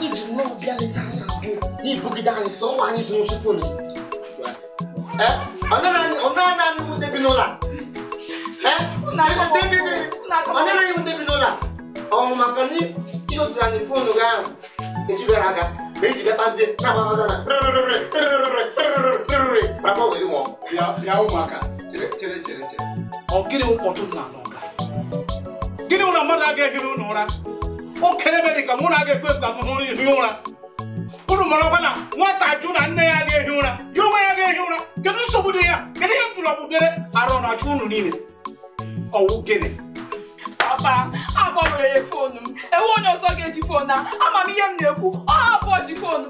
ji nwa ọbịa leta anya abụọ n'ibugide anyị sọ ọnwa anyị zụrụ sifon ọnara anyị mụ ndebi n'ụlọ ọnara anyị mụ ndebi n'ụlọ ọnwụ maka na ịgoziri anyị fonu gị ahụ ejigara aka ma ejigatazie na-agbaghaza na maka ọgwụ gị nwụọ ya ụmụaka chere chere chere ọ gịnị ụkpọtụ na-anọ gịnị ụlọ mmadụ agaghị ehi n'ụlọ ụra o kɛlɛ bɛ de ka mun na kɛ kpe ka mun hiun na kudu mɔlɔ na ne y'a kɛ hiun na yoma y'a kɛ hiun na kɛtu sogo de ya kɛtu ye tulabu gɛrɛ a rɔ na ju ninnu de ɔwɔ gɛnɛ. papa agbanwere fonu enwe onye ọzọ ga-eji fonu a ama ihe m na-ekwu ọ hapụ ji fonu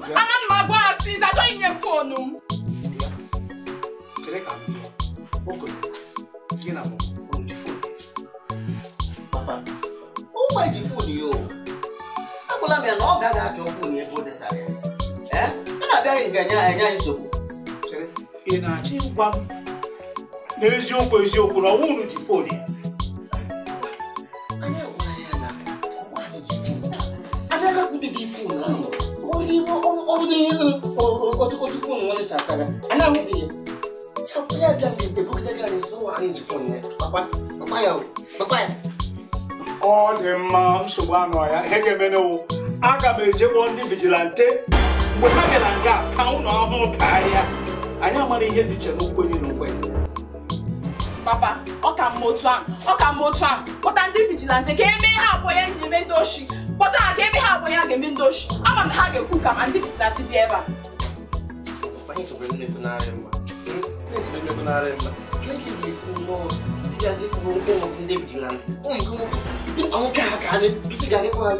enye anyị nsogbu ị na-achọ ịgwa m n'eziokwu eziokwu na ọnwa unu ji fon ya otu fon nwanne sachara ana ahụghị ya ya bịa mgbe mgbe bụgidere anyị nso nwa anyị ji fon ya gbakwa ya gbakwa ya ọ dị mma nsogbu anụ ọhịa ihe ga-eme n'owu aga m ejekpọ ndị vigilante mgbe ha bịara nga ka ụlọ ọhụụ ka ahịa anyị amara ihe dị iche na nkwenye na nkwenye papa ọ ka mma otu a, ọ ka mma otu a, kpọta ndị vigilante ka eme ha abụọ ya na-eme ndị oshi kpọta ha ka eme ha abụọ ya ga-eme ndị oshi ama na ha ga-ekwu ka ma ndị vigilante dị ebe a hmm? ka esi mmụọ si ya dịpụrụ ụmụ ndị vigilanti ụmụ nke nwoke ha ka anyị ha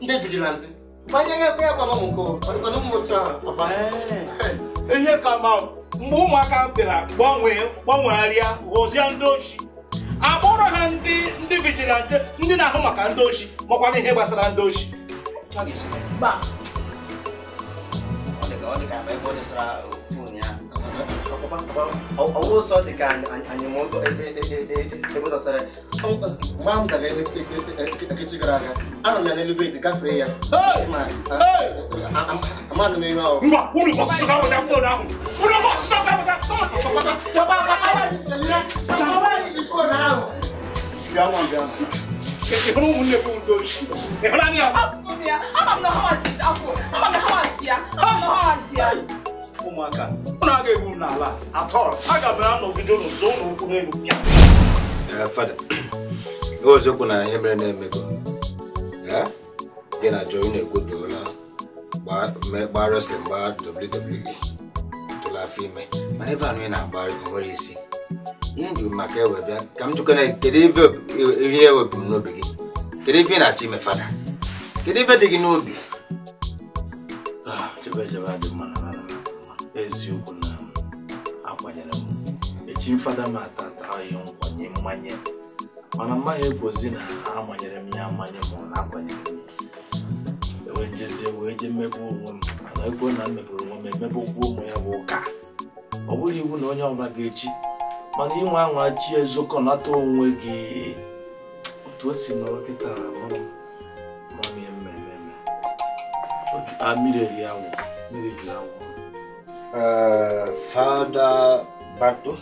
ndị vigilanti ihe ka ma mgbe ụmụaka bịara gbanwegharịa ghọzie ndị ochi akpọrọ ha ndị ndị vigilante ndị na-ahụ maka ndị ochi makwana ihe gbasara ndị ochi ọ dị ọwọ́ sọ dị ka anyịmụndụ ebe dọsara mgbe m zara ekechi gara aga anọ m ya n'elugbe dị gafee ya amadụ m ihe ọhụrụ mba unu ka ọsụsụ ka weta fon ahụ unu ka ọsụsụ ka weta fon ahụ bịa nwa bịa Kekekuru ụmụnne bụ ndị ochie. Ịhụla ndị ahụ? Abụ m ya, ama m na ha ji akwụ, ama m na ha ji ya, ama m na ha ji ya. ụmụaka ụnụ a egbu m n'ala atọl aga m anọgide ụnụ so ụnụ ụkwụ n'elu ozokwu na ihe mere na-emego gị na joi na-egwodola gbaa wrestling gbaa WWE tụla afọ ime mana ebe anụ ị na-agba nwere isi ihe ndị maka ka m jụkọ na kedu ihe m n'obi gị kedu ife ị na-achọ ime fada kedu ife dị gị n'obi ah, chebe chebe adị mma na eziokwu na akwanyere m echi fada m ata ya nkwanye mmanye mana mmaghị ekwozi na amanyere m ya amanye ma na akwanyere m ewe njezie wee jee mmegbu onwe m mana ekwe na mmeburu onwe m emebe ụgwọ ụmụ ya bụ ụka ọ bụrụ iwu na onye ọbụla ga-echi mana inwe anwa chi ezokọ nata onwe gị otu o si nọrọ kịta mmiri eri awụ mmiri juru awụ uh, Father Bato.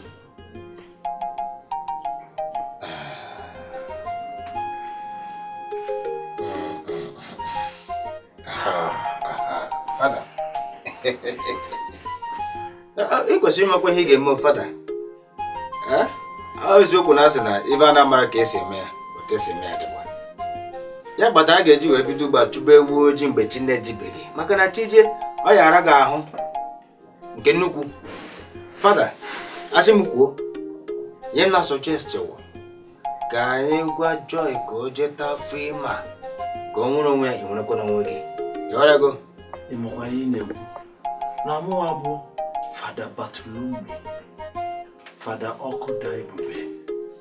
Father. ị kwesịrị ịmakwa ihe ị ga-eme fada eh? eziokwu na asị na ibe a na-amara ka esi eme ya otu esi eme ya dịkwa ya kpata a ga-eji wee bido ugba chụba ojii mgbe chi na-ejibeghị maka na chi jee ọ yara gị ahụ nke nnukwu fada asị m kwuo nye m na sọchesti ka anyị gwa Joy ka o jeta afọ ịma ka ọ nwere onwe ya ị nwerekwa n'onwe gị ego. ịmụkwa ihe ị na-ekwu na mụwa bụ fada batulumi fada ọkụ da ebube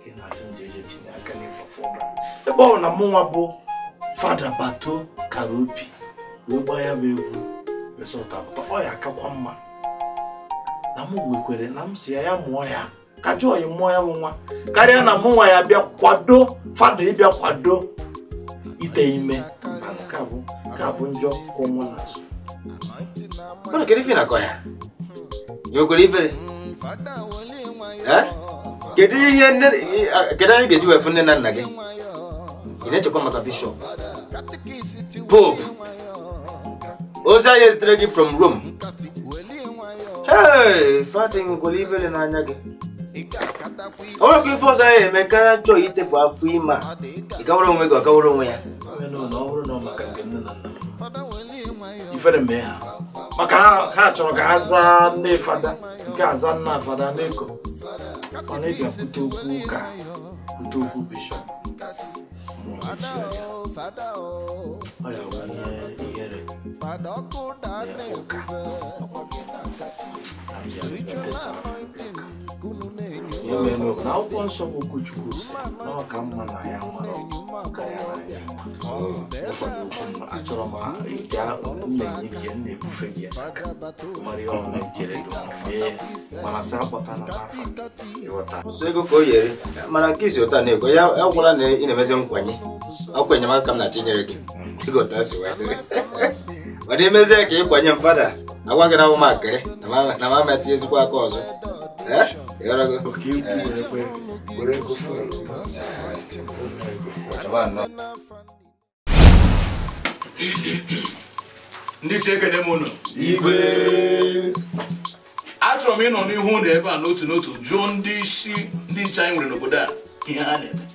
gị na-asị m jeje tinye aka n'ịfafọ ebe ọ na mụnwa bụ fada bato kara obi wee gbaa ya bụ egwu resọt apụta ọ ya akakwa mma na m nwekwere na m si ya ya mụọ ya ka joy mụọ ya nwa karịa na mụ nwa ya bịa kwado fada ịbịa kwado ite ime nke a bụ nke bụ njọ kwụ mụ n'azụ ụnụ kedu ife nakọ ya nwekwere ifere kedu ihe kedu anyị ga-eji wefu nne na nna gị ị na-echekwa maka bishọp pope ozi anyị ezitere gị from rome ee fatịn gwere ifele n'anya gị ọ bụrụ ka ife ọzọ ya eme karịa chọọ itepụ afọ ime a ịkawara onwe gị ọkawara onwe ya ifere mee ha maka ha chọrọ ka ha zaa nne fada nke aza nna fada n'eko mana ị bịakwute okwu ka kwute okwu bishọp Padokoda Nebuga. Ritual anointing. Kunu imenụ na akwụkwọ nsọ bụ okwuchukwu si ka mma na ya nwere achọrọ m ịga na-enye gị na-ebufe gị mara ya ọma ijere mana sị akpọta na n'afọ ego ka o yere mana nke isi ụta na-ego ya agwụla na ị na-emezi nkwanye ọkwa enyemaka ka m na-achọ gị ịgota si wee dịrị [LAUGHS] mana ka m fada agwa gị na awụmakịrị na ma ezigbo aka ọzọ É? Eh? Eu era pouquinho é. por aí que eu fui. Mano, ndị chi ekene m ụnụ igwe achọrọ m ịnọ n'ihu ụlọ ebe a n'otu n'otu jụọ ndị isi ndị nche anyị nwere n'obodo a ihe ha na-eme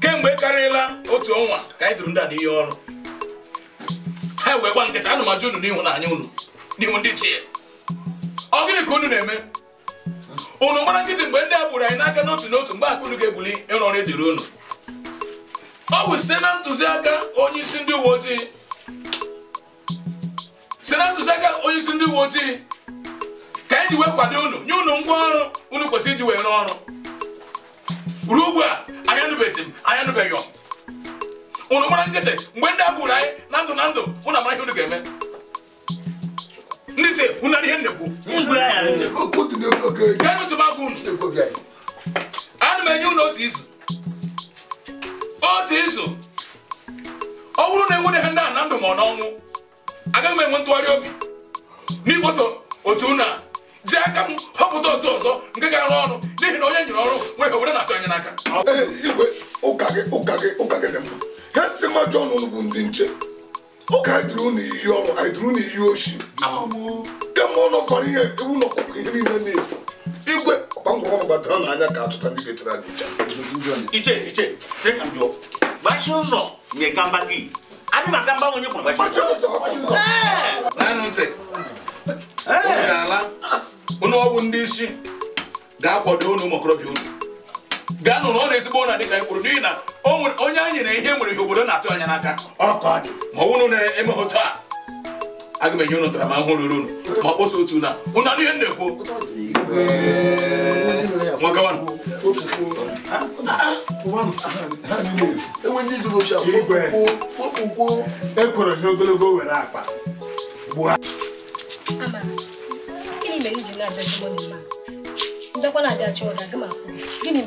kemgbe karịla otu ọnwa ka anyị duru ndị a n'ihe ọrụ ha wee gba nkịta anụmajụ unu n'ihu na anya ụnụ n'ihu ndị chi ya ọ gịnị ka unu na-eme unu mara nkịtị mgbe ndị a gburu anyị n'aka n'otu n'otu mgbe akụnụ ga-ebuli ịrụ ọrụ ejiri unu ọ bụ site na ntụziaka onye isi ndị uwe ojii site na ntụziaka onye isi ndị uwe ojii ka anyị ji wee kwado unu nye unu ngwa ọrụ unu kwesịrị iji wee rụọ ọrụ ruo ugbu a anyanụbeghị m anyanụbeghị unu mara nkịtị mgbe ndị a gburu anyị na ndụ na ndụ unu amaghị unu ga-eme ndị ite ụna ihe ndekwu ga-enụtụbakwa unu ana m enye unu otu izu otu izu ọ bụrụ na enwere ihe ndị a na ndụ ma ọ n'ọnwụ agaghị m enwe ntụgharị obi n'igboso otu unu a ji aka m họpụta otu ọzọ nke ga-arụ ọrụ n'ihi na onye nyere ọrụ nwere owere na-atụ anya n'aka igwe ụka gị ụka gị ụka gị dị mma ha si mmadụ ọnụ bụ ndị nche oge anyị dịrị unu ọrụ anyị dịrị oshi kemgbe ụlọ ihe ewu na ọkụkọ ihe niile na-efu igwe ọkpangwọgbatara n'anya ka achụta ndị ga anyị iche iche ụzọ nye gamba gị adị na ụzọ ntị ụnụ ọgwụ ndị isi ga-akwado ụnụ ụmụ okorobịa gaa n'ụlọ ọ na-ezigbo ụlọ dịka ekwuru n'ihi na onye anyị na ihe nwere ihe obodo na-atụ anya n'aka ma ọ wụrụ na-eme otu a aga m enye ụnụ tara ma hụ ruru unu ma kposa otu na ụnụ adịghị nna ekwu ogologo were akpa bịakwa na abịa chọọ ụda gị ma gịnị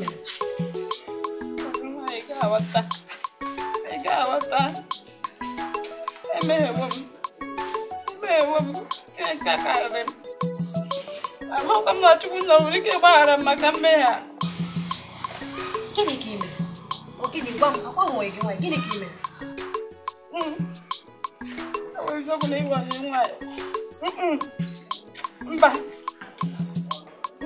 mere emeghewo m na chukwu na nwere ike gbaghara m maka mmehie a gịnị ka ime gịnị gwa m akwa nwere gị nwanyị gịnị ka ime ọ nwanyị mba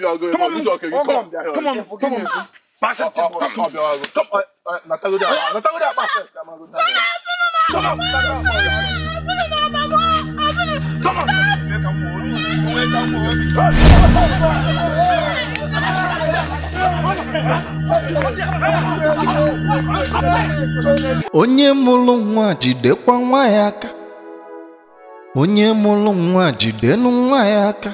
you're going come on, this is okay. You come, come, come, come on, come on. Pass it, come, come, come, come. Natago there, Natago there, pass it. Come on, come on, come on. Onye mụrụ nwa jidekwa nwa ya aka onye mụrụ nwa jidenu nwa ya aka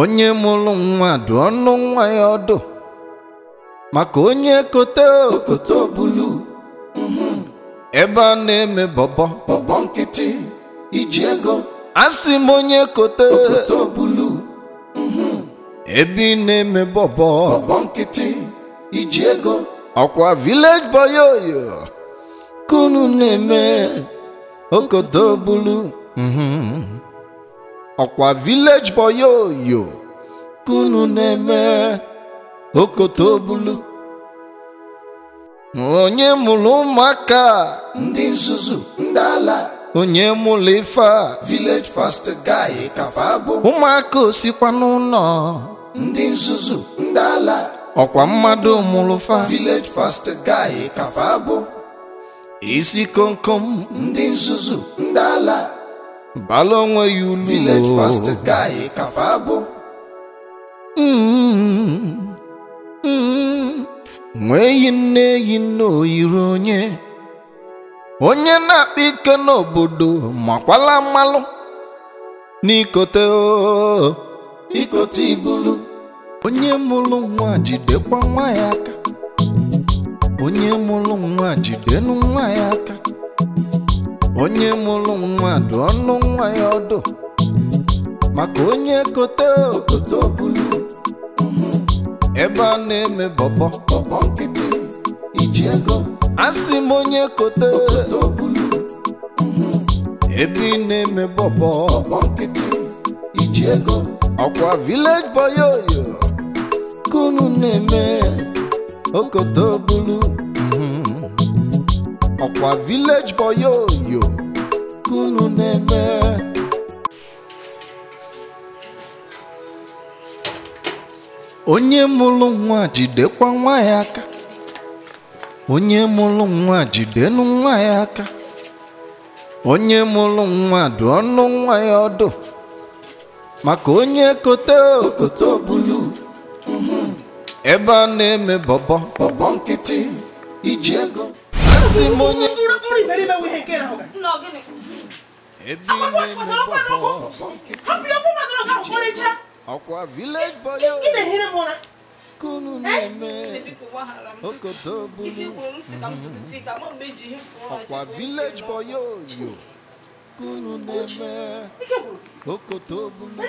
onye mụrụ nwa dụ ọnụ nwa ya ọdụ maka onye kote okoto obulu ebe a na-eme bọbọ bọbọ nkịtị iji ego asị m onye kote okoto obulu ebe ị na-eme bọbọ bọbọ nkịtị iji ego ọkwa village boy oyo kunu na-eme okoto obulu ọkwa village boy oyo kunu na-eme okoto okotobulu onye mụrụ ụmụaka ndị nzuzu ndị ala onye mụrụ ife a village fast guy kafa bụ ụmụaka osikwa n'ụlọ ndị nzuzu ndị ala ọkwa mmadụ mụrụ fa village fast guy kafa bụ isi komkom ndị nzuzu ndị ala bala onwe ya ulu village fast guy kafa bụ mm-hmm. nwee mm-hmm. yi nne yi nne oyiri onye onye na-akpa ike n'obodo makwala mmalụ n'ikote ikote ibulu onye mụrụ nwa jidekwa nwa ya aka onye mụrụ nwa jidenu nwa ya aka onye mụrụ nwa dụ ọnụ nwa ya ọdụ maka onye kote okote obulu ebe a na-eme bọbọ bọbọ nkịtị iji ego asị m onye kote okote obulu ebe ị na-eme bọbọ bọbọ nkịtị iji ego ọkwa village boy oyo kunu na-eme okote obulu ọkwa village boy yo unu na-eme onye mụrụ nwa jidekwa nwa ya aka onye mụrụ nwa jidenụ nwa ya aka onye mụrụ nwa dụ ọnụ nwa ya ọdụ maka onye kote okoto bulu ebe a na-eme bọbọ bọbọ nkịtị iji ego simonye ọkwa village boy kunu neme eh? okoto bulu ọkwa village boy yo kunu neme okoto bulu.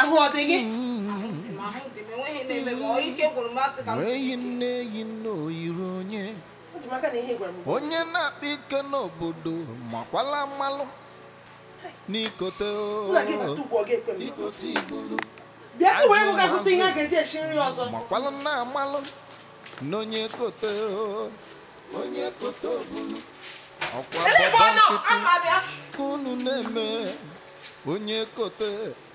ahụ ọ dị gị eyi n'oyiri onye onye na-akpa ike n'obodo makwala mmalụ n'ikote makwala na amalụ n'onye kote onye kote obulu ọkwa baba nkịtị unu na-eme onye kote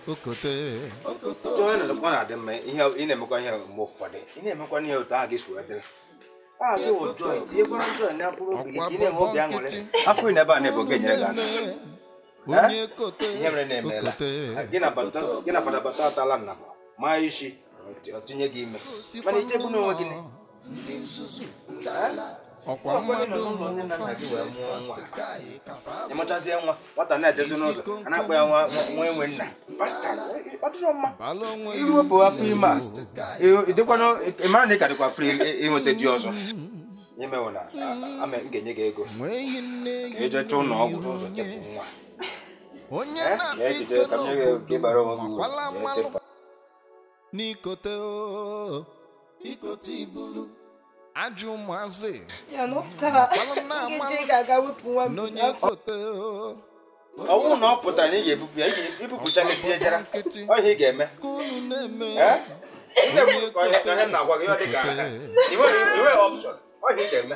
ọ na-adị mma ị na-emekwa ihe mgbe ụfọdụ ị na-emekwa ihe otu a gị si wee dịrị afọ na-ebe a na gị nyere na-emeela gị fada atala nna maa isi ọ tinye gị ime mana ichebu n'onwe gị ọkwa mmadụ ịmụchazie nwata na-ejezi n'ụzọ a na-akpọ ya nwa enwe nna iwepụ afọ ime na ị ka dịkwa fri ịnweta di ọzọ imewo ama m ga-enye gị ego ka ejechaa ụlọ ọgwụ n'ụzọ tepụ nwa eh, ejije ka m gị ego ka onwe gị uru n'ikote ibulu ajụ ụmụazị n'onye foto ọnwụ na ọ pụtara na ị ga-ebupụ ya ibupụcha gị tie jara ọhịa ị ga-eme ihe m na-agwa gị ọ dị ka ihe ọpshọn ọhịa ị ga-eme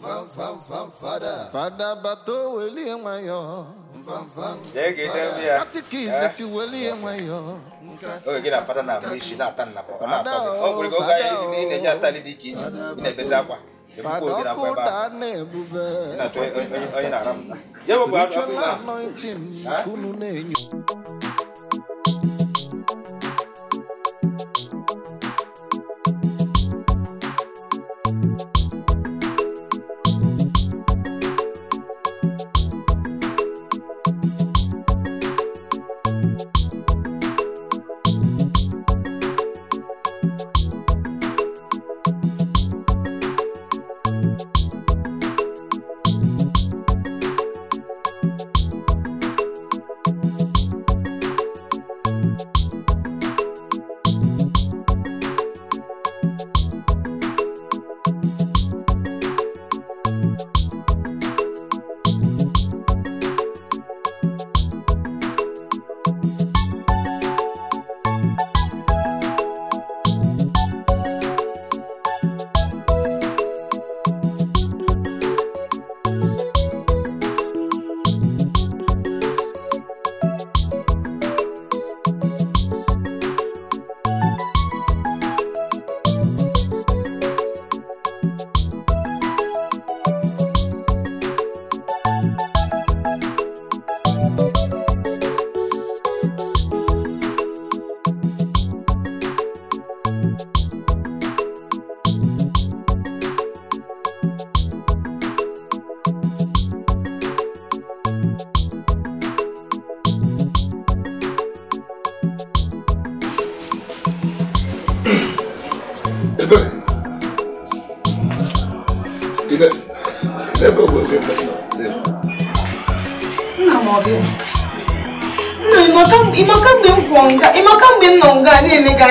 Father Bato William Mayo. Take it up here. What the keys that you William Mayo? Oh, get a father now, Miss Nathan. Oh, go guy in a just study the teaching in a Besapa. Father,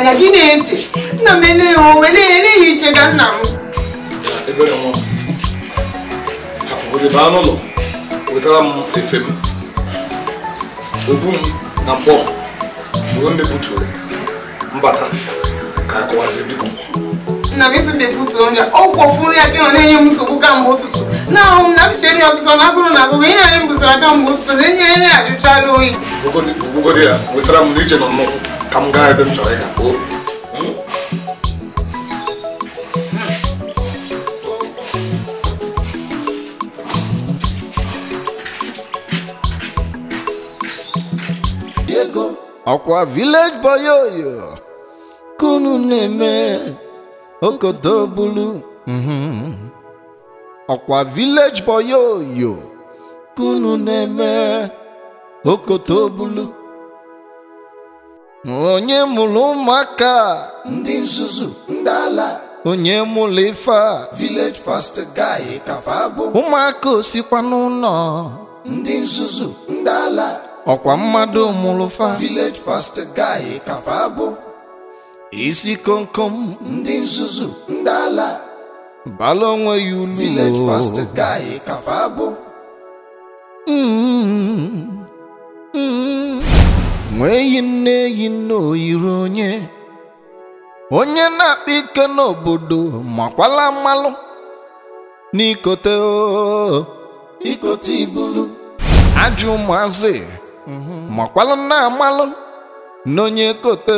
anya gị na-eche nna m ele ya owe eleghị iche ga nna m baa n'ụlọ wetara m efe m ogbu m na mkpọ m mgbe m mepụtụrụ mbata ka akọwazie biko nna m isi na-ebutụ onye ọ kwọfuru ya bịa na-enye m nsogbu kamgbe ụtụtụ na-ahụ m na m chere ọsụsọ na agụrụ na agụgụ ihe anyị m bụsara kamgbe ụtụtụ na-enye nri ajụchala oyi ya wetara m na iche nọ n'ụkwụ ka m gaa ebe m chọrọ ịga kpoo ọkwa village boy oyo kunu na-eme okoto bulu ọkwa mm-hmm. village boy oyo kunu na-eme okoto bulu onye mụrụ ụmụaka ndị nzuzu ndị ala onye mụrụ ife a village fast guy kafa bụ ụmụaka osikwa n'ụlọ ndị nzuzu ndị ala ọkwa mmadụ mụrụ fa village fast guy kafa bụ isi komkom ndị nzuzu ndị ala bala onwe ya ulu village fast guy kafa bụ nwee nne yi n'oyiri onye onye na-akpa ike n'obodo makwala mmalụ n'ikote ikote ibulu Ajụ ụmụazị makwala na amalụ n'onye kote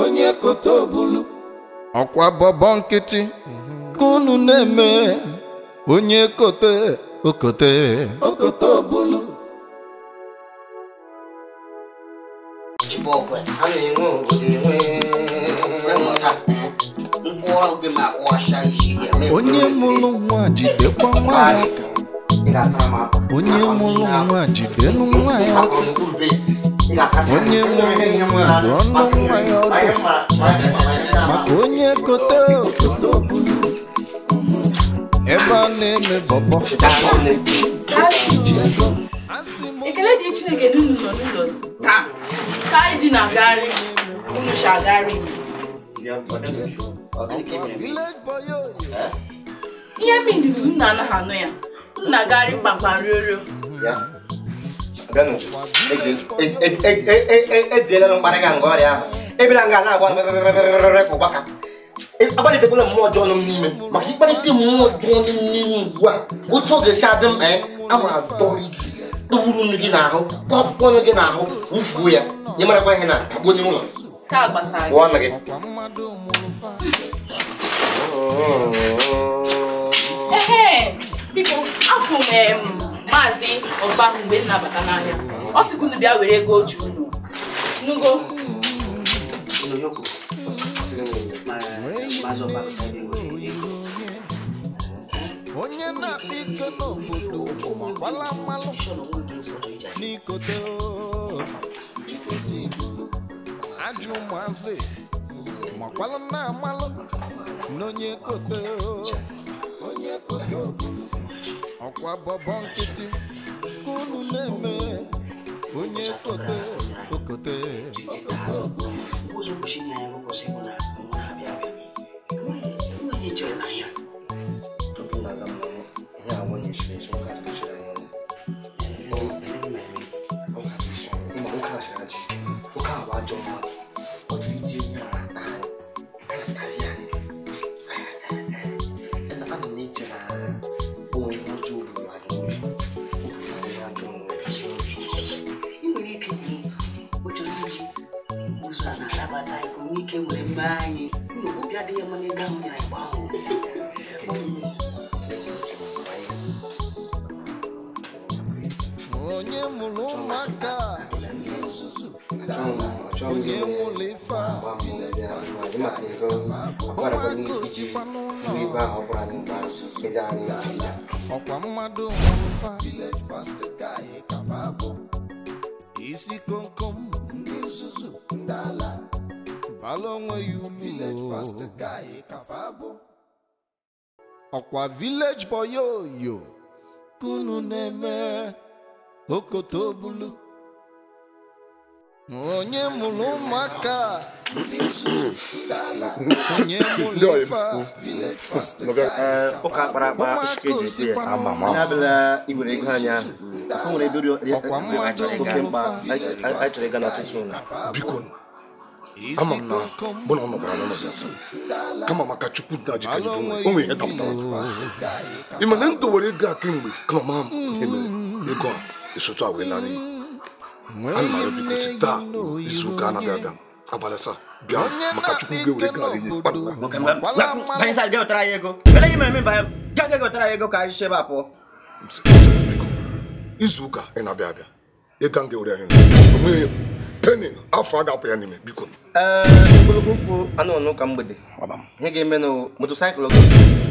onye kote obulu ọkwa bọbọ nkịtị ka unu na-eme onye kote okote okote obulu bọkwe a na-enwe onye mụrụ nwa jidekwa nwa ya onye mụrụ nwa jidenụ nwa ya onye mụrụ nwa bụ ọnụ nwa ya ọdụ maka onye kote okoto ebe a na-eme bọbọ ekele dị chineke n'ụlọ n'ụlọ taa ka anyị dị na gari unu si agari ihe mindiri nna anaghị anụ ya nna gari kpakpa riorio ejiela m mkparị ga nga ọrịa ahụ ebere nga na-agwa rere ka ụgbaka akparịtekwala mmụọ ọjọọ nọ m n'ime maka ịkparịta mmụọ ọjọọ nọ m n'ime ugbu a otu ọ ga adị m ee a ma adọrọ ike tụwuru nnu gị n'ahụ kpọpụkpọ ọnụ gị n'ahụ wụfuo ya nye marakwa ihe na akpụnye ụlọ pụọ na gị biko afụ m maazị ọba mgbe m na-abata n'ahịa ọ sịkwa unu bịa were ego oji unu nugo maazị ọba onye na-akpa iko n'obodo ụmụagbala mmalụ n'ikote ajụ ụmụazị makwala na-amalụ n'onye kote ọkwa bọbọ nkịtị ka na-eme onye kote okote omume anyị obi adịghị mma n'ego ahụ nyere igbe ahụ onye mụrụ ụmụaka onye nwụrụ ife ọkwa mmadụ isi komkom ndị nzuzu ndị ala bala onweghị ulu ọkwa village boy oyo kunu na-eme okoto bulu onye mụrụ ụmụaka eh, ụka kpara akpa sike ji si abịala iwere ego anya o nwere amam na mụ na ọ nọkwara n'ụlọ bịa kama maka chukwu na jikọrọ o nwere ihe dapụtara ị ma na m dowere ego a kemgbe kama ma emere ego a esotu a wee larị ana m arịọ biko si taa izu ụka anaghị abịa abalị asaa bịa maka chukwu ga-ewere ego a nye ego ka anyị si ebe a pụọ izu ụka ị na-abịa abịa ego a m ga-ewere anyị penin afọ a ga-apụ ya n'ime biko ogologo okwu anụ ọnụ ka mgbede ihe ga-eme na motosaịkụl gị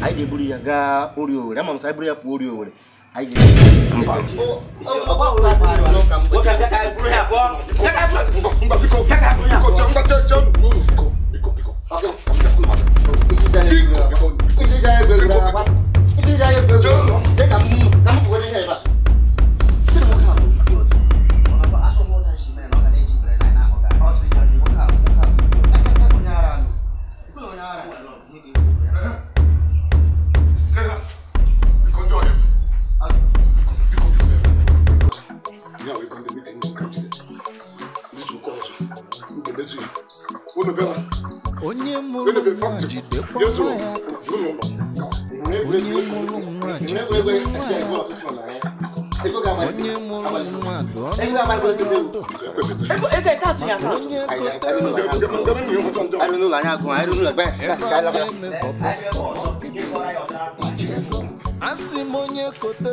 anyị ga-eburu ya gaa ori owere ama m sa buru ya pụọ ori owere anyị ga-eburu ya onye mụrụ nwa jidekwa nwa ya onye mụrụ nwa jidekwa nwa ya onye mụrụ nwa dụ ọnụ onye m onye kote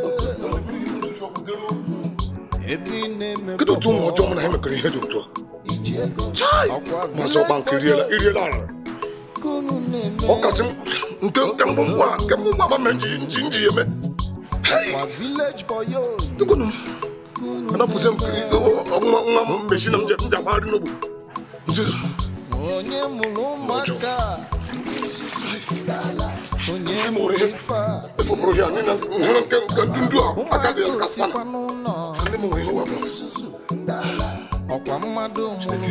kedụ otu ụmụ ọjọọ mụ na ihe dị otu a chai ọgba nke iriela ara nke nke ngwa nke ngwa nji nji nji eme m nwa m mesi na m ji agbagharị n'ogbo nzuzu onye mụrụ ụmụaka Onye mụrụ efọpụrụ ya mmadụ mụrụ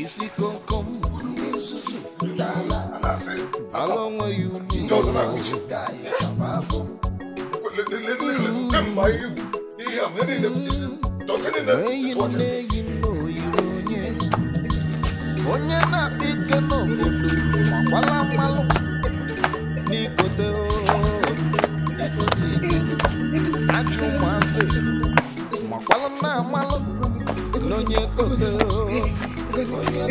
isi komkom ala onwe ya ugbu ihe Écoutez-moi. Écoutez-moi.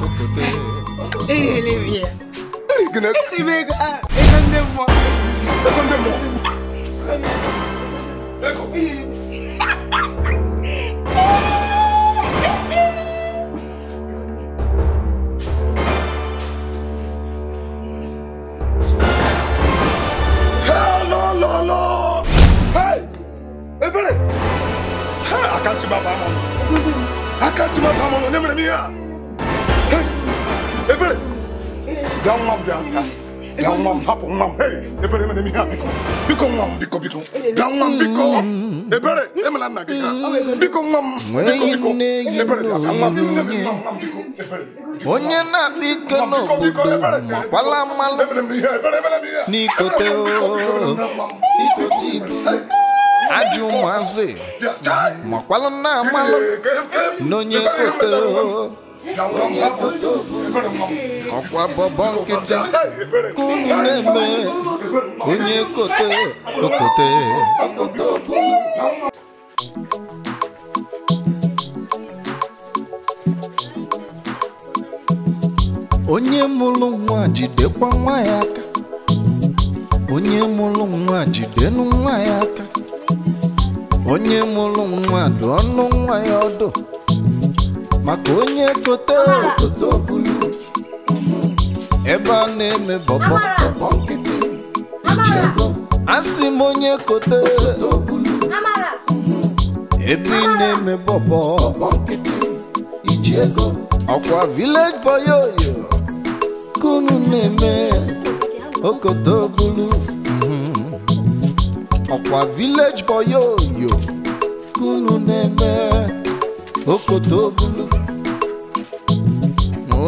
ecoutez mam hapụ nwa m ebere emere m ihe a biko biko nwa m biko biko bịa nwa m biko ebere emela nna gị ha biko nwa m biko biko ebere bịa nwa m biko onye na-akpa ike n'obodo makwala mmalụ n'ikote ikote ibu ajụ ụmụazị makwala nna amalụ n'onye kote onye kote obodo ọkwa bọbọ nkịtị ka unu na-eme onye kote okote onye mụrụ nwa jidekwa nwa ya aka onye mụrụ nwa jidenụ nwa ya aka onye mụrụ nwa dụ ọnụ nwa ya ọdụ maka onye kote okote obulu ebe a na-eme bọbọ bọbọ nkịtị iji asị m onye kote ebe ị na-eme bọbọ bọbọ nkịtị iji ego ọkwa village boyoyo, oyo na-eme okoto bulu mhm. ọkwa village boyoyo, oyo na-eme okoto bulu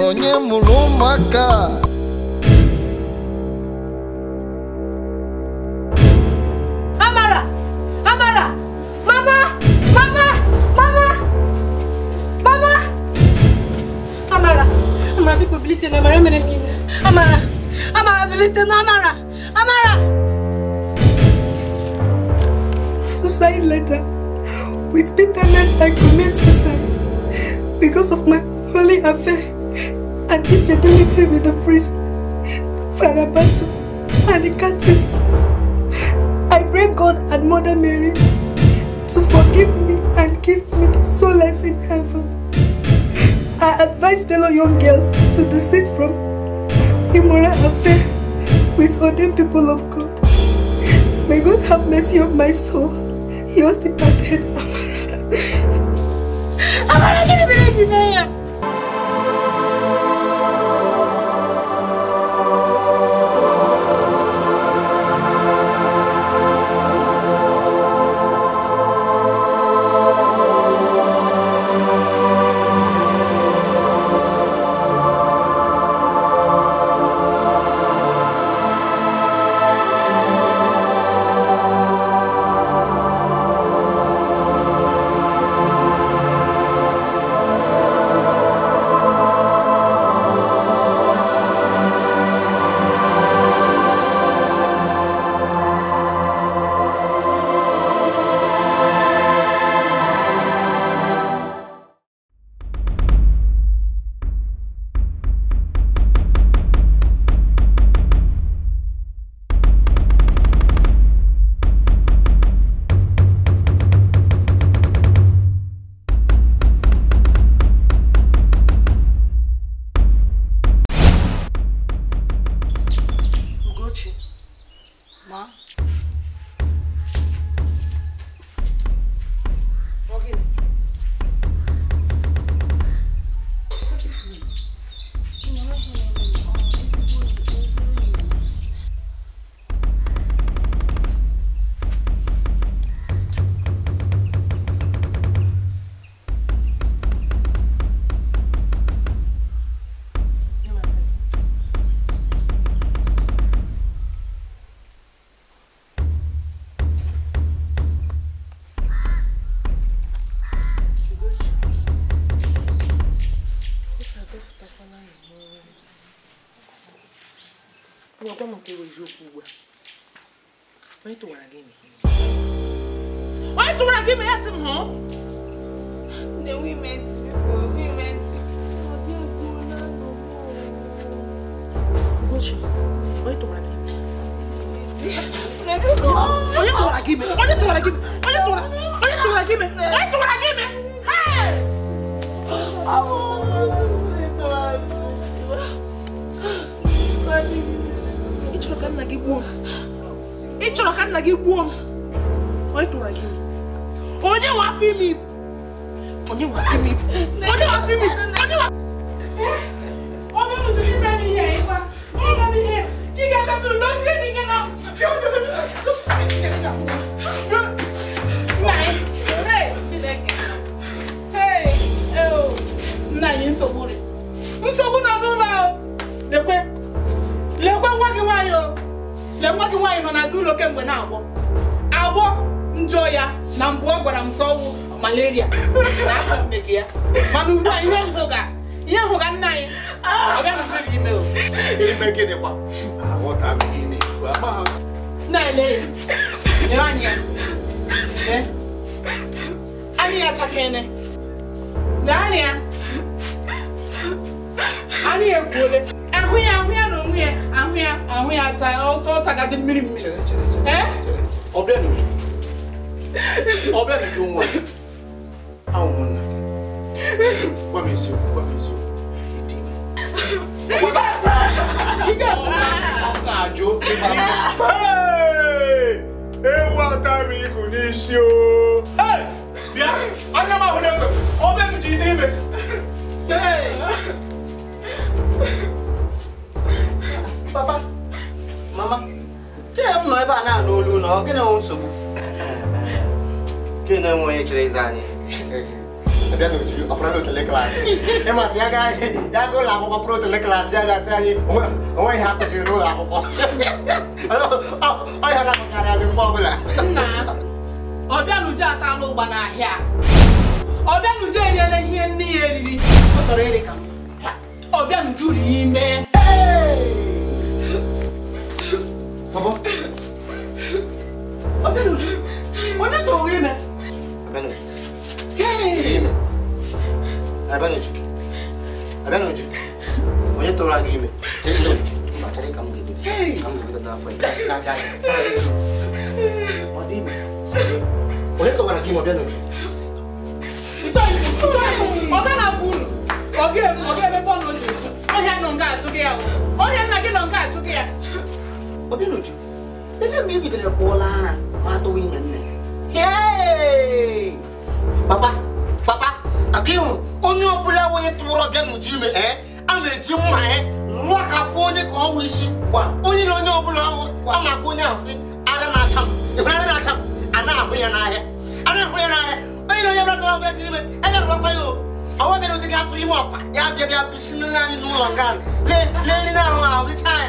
onye mụrụ ụmụaka little Amara. Amara! Suicide letter. With bitterness, I commit suicide because of my holy affair and infidelity with the priest, Father Batu, and the catist. I pray God and Mother Mary to forgive me and give me solace in heaven. I advise fellow young girls to desist from immoral affair with ordained people of God. May God have mercy on my soul. He was departed, Amara. Amara, get a minute gbuo m ị chọrọ ka nna gị gbuo m onye tụrụ gị onye nwe afọ ime ibu onye nwe afọ ime ibu onye nwe afọ ime ibu onye nwe ọbụ ntụtụ gị mere ihe ịkwa ọ mere ihe lee nwa gị nwaanyị nọ n'azụ ụlọ kemgbe na-agbọ agbọ njọ ya na mbụ ọ gwara m sọwụ malaria ya mana ugbu a ihe hụga ihe nna anyị anya ya ahụya ahụya ahụya ata ọtọ ọtagazi mmiri mmiri ọbịanụ ọbịanụ gị nwa ahụ m nna gị gwa m eziokwu gwa m eziokwu ịdị na-ajụ ewu atara iku n'isi o bịa anya m ahụ na-ekwe ọbịanụ ji dị ime papa mama kee m nọ ebe a na-anụ olu ụlọ ọ gịnị nwe nsogbu gịnị nwe onye chere ịza anyị ịmasị ya gaa ya gaa ụlọ akwụkwọ pụrụ otele klaasị ya ga gasị anyị onwe ihe akụziri n'ụlọ akwụkwọ ọhịa na-apụkarị anyị mgbe ọbụla ọbịanuje atala ụgba n'ahịa ọbịanuje eriela ihe nne ya eriri ọ chọrọ ịrị ka ọbịanuje uri ya Ee. Baba. Abenuj, wọ́n tó rí mi. Abenuj. Rí mi. Abenuj. Abenuj. Wọ́n tó rà rí mi. Tẹ́lẹ̀ lọ. Mà tẹ́lẹ̀ kàmú gègé. Kàmú gègé náà fọ yìí. Náà dáa yìí. Ọdí mi. Wọ́n tó rà aqui mi Abenuj. Ìtọ́ ìlú, ìtọ́ ìlú, ọ̀gá náà kú nù. Ọ̀gá ẹ̀ ọ̀gá ẹ̀ bẹ́ẹ̀ bọ́ọ̀lù ọ̀jẹ̀. Ọ̀gá ẹ̀ nọ̀ ń gà àtúgẹ̀ yà wọ̀. Ọ̀gá ẹ̀ nà gẹ̀ nọ̀ Obinudu, ife m ibidoro kpụọla ara ma atụwa inwe nne. Papa, papa, aka ịhụ onye ọbụla onye tụrụ ọbịa nnụchi ime ee a na-eji mma ya rụakapụ onye ka ọnwa isi gwa onye na onye ọbụla ahụ a na-akpọ onye ahụ sị ada na-acha m ịhụrụ ada na-acha m a na-ahụ ya n'ahịa a na-ahụ ya n'ahịa onye na onye ọbụla tụrụ ọbịa jiri ime ebe rụkwa ya obi ọwa bịara ozi ga-atụrụ ime ọkpa ya bịa bịa bisi nri anyị n'ụlọ nga lee nri na ahụ ahụ gịcha ya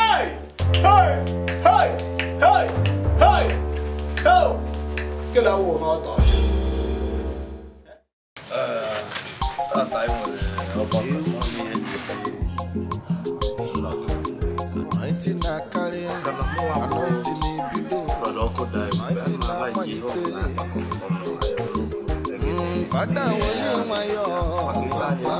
Hey! Hey! Hey! Hey! Hey! Ho! Cái lâu rồi ngồi tỏ. Ờ, ta tại một nó còn nó đi hết Anointing na carry, anointing in below. Ọlọ́kọ̀ dà ẹ̀mí bá máa láì yí ọ̀la. Fada wọlé mayọ̀, fada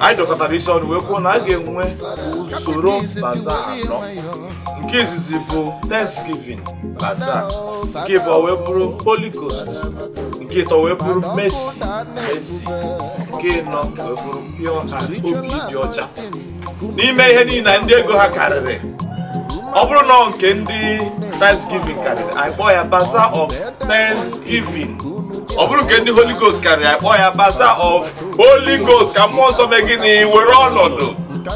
anyị dọkọtara isi ọnụ wee kwuo na a ga-enwe usoro baza anọ nke izizi bụ Thanksgiving baza nke ịbụ wee bụrụ Holy nke ịtọ wee bụrụ Mercy Mercy nke ịnọ wee bụrụ Pure Heart obi dị ọcha n'ime ihe niile ndị ego ha karịrị ọ bụrụ na nke ndị Thanksgiving karịrị anyị kpọọ ya baza of Thanksgiving ọ bụrụ nke ndị holy ghost karịrị akpọ ya baza of holy ghost ka mmụọ nsọ mee gịnị were ọnọdụ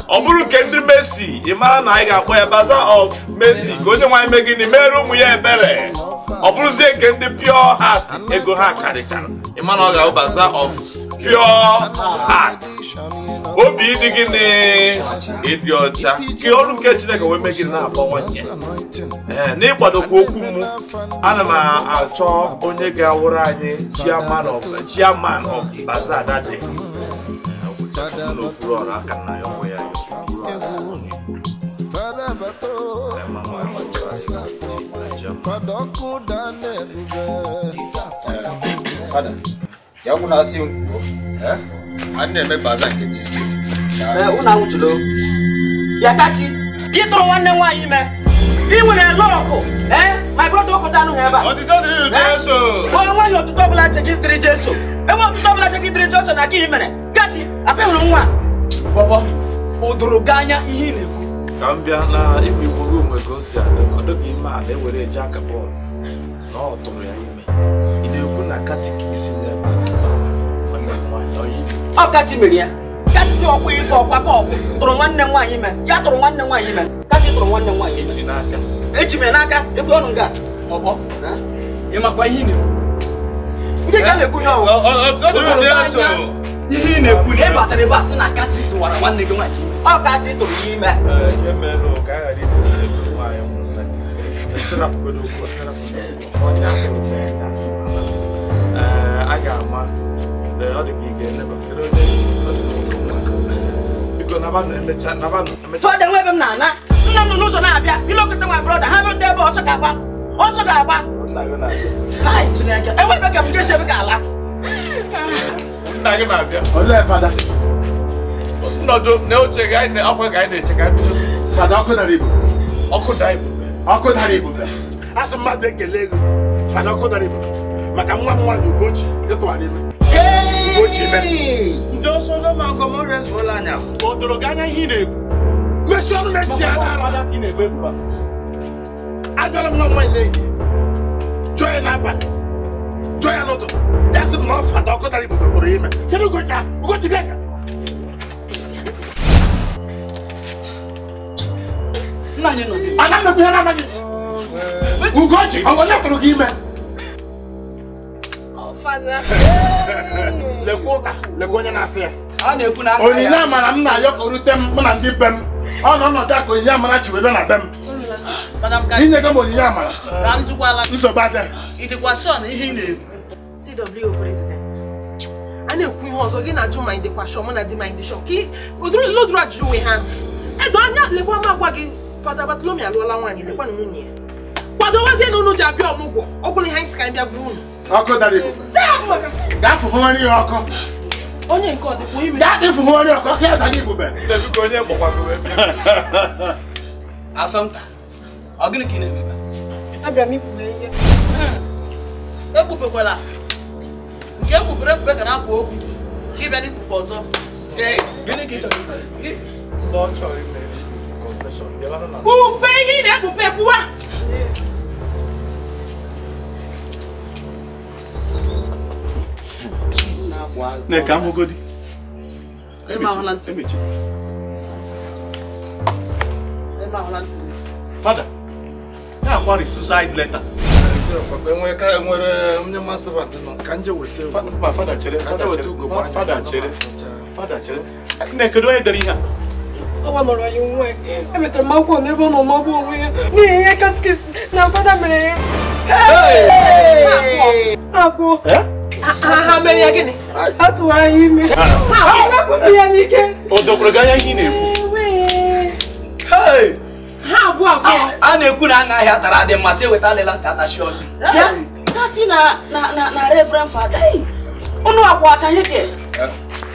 ọ bụrụ nke ndị Messi ị mara na anyị ga-akpọ ya Bazaar of Messi ka onye nwaanyị mee gịnị mere ụmụ ya ebere ọ bụrụzie nke ndị pure heart ego ha karịchara ị ma na ọ ga-abụ Bazaar of pure heart obi ịdị gịnị ịdị ọcha ka ọrụ nke Chineke wee mee gịnị na-akpọwanye akpọ n'ịkwadokwa okwu m ana m achọ onye ga-awụrụ anyị chairman of chairman of Bazaar that day n'okpuru ọrụ aka na ya Fada, yangu na asi nguo eh? Anne mebaza kejisi. Eh, una utulo. Ya tati. Gitro wanne nwanyi me. Iwe na loko, eh? My brother ko danu heba. Otito diri Jesu. O nwa yo tuto bla che gidri Jesu. E eh, mo tuto bla che gidri Jesu na ki himere. Gati, ape hunu nwa. Bobo, odoro ganya ihe na-ekwu ka m bịa na ebe igburu onwe ka o si adị ọ dịghị ime ala ewere eje aka bọọlụ na ọ tụrụ ya ime ị na-ekwu na katikisi na-eme ọkachi mere ya kachi ọkwa ịkọ ọkwa ka ọkwa tụrụ nwanne nwaanyị ime ya tụrụ nwanne nwaanyị ime kachi tụrụ nwanne nwaanyị echi n'aka echi mere n'aka ekwe ọnụ nga ọkpọ ịmakwa ihe ị na-ekwu ndị ka na-ekwu ihe ọwụ ihe ị na-ekwu na ị batara ebe a sị na kachi tụwara nwanne gị nwaanyị ọkachi tụrụ ime a ga m na-ana nna m n'ụzọ na-abịa ilekọta nwa brọda ha bụrụ ebe ọsọ ga-agba ọsọ ga-agba enwe ka m ga-esi ebe ga ala nọdụ na oche gị anyị akwa gị anyị na-eche ka anyị ọkụ dara ibu ọkụ dara ibu ọkụ dara ibu asị mmadụ ekele ego mana ọkụ dara ibu maka nwa m nwaanyị ugochi ịtụgharị ime ugochi ime ndị ọsọ ndị ọma agọm ọrịa ezuola anya o doro gị anya ihe ị na-egwu mechie ọnụ mechie ajụọla m nwa nwaanyị na-eyi jụọ ya n'abalị jụọ ya n'ụtụtụ ya sị m na ọfụ ada ọkụ dara ibu kpọrọ ime kedu ugochi ahụ ugochi bịa Ana m ekpughere anaghị. Ugochi, ọ bụ onye tụrụ gị ime? Lekwa ụka, lekwa onye na-asị ya. Onyinye amara m na-ayọ ka o rute m mụ na ndị be m. Ọ nọ ọnọdụ a ka onyinye amara chi wee bịa na be m. Inye gị CW President, a na-ekwu ihe ọzọ gị na-ajụ ma ị dịkwa shọ mụ na di ma ị dị shọ. Ụdịrị ụdịrị ajụjụ nwe ha. Edo anya lekwa m Father Bartholomew alụọla nwaanyị lekwa na nwunye ya kwadowazie na unu ji abịa ọmụgwọ ọ bụla ihe anyị si ka anyị bịa gụrụ unu ọkụ dara igbo gaa fụhụrị ya ọkụ onye nke ọ dịkwa ime gaa fụhụrị ọkụ ọkụ ya dara igbo onye gbakwagowe asọmta ọ gịnị ka ị na-emebe abịara m ikpughe ihe ekpubekwala nke ekpubere ekpube ka na-akwa okwu ka ịbịa n'ikpukpe ọzọ gịnị ka ị chọrọ ime Kpupe ihe ị na-ekpupe kwuwa ka m hụgodi fada na-akwari suicide letter fada chere fada chere fada chere nne kedu onye dere ọwa mụrụ ya onwe ya e emetara m akwụkwọ m ebe ọ nọ magbuo onwe ya n'ihi ihe katikis na fada mere ya abụọ eh? a tụwara ya ime rapụrụ ya n'ike o dokwuru gị anya na-ekwu ah! a na-ekwu na anaghị atara adị mma sị alịla nka atachi ọnụ unu akwa ọcha ha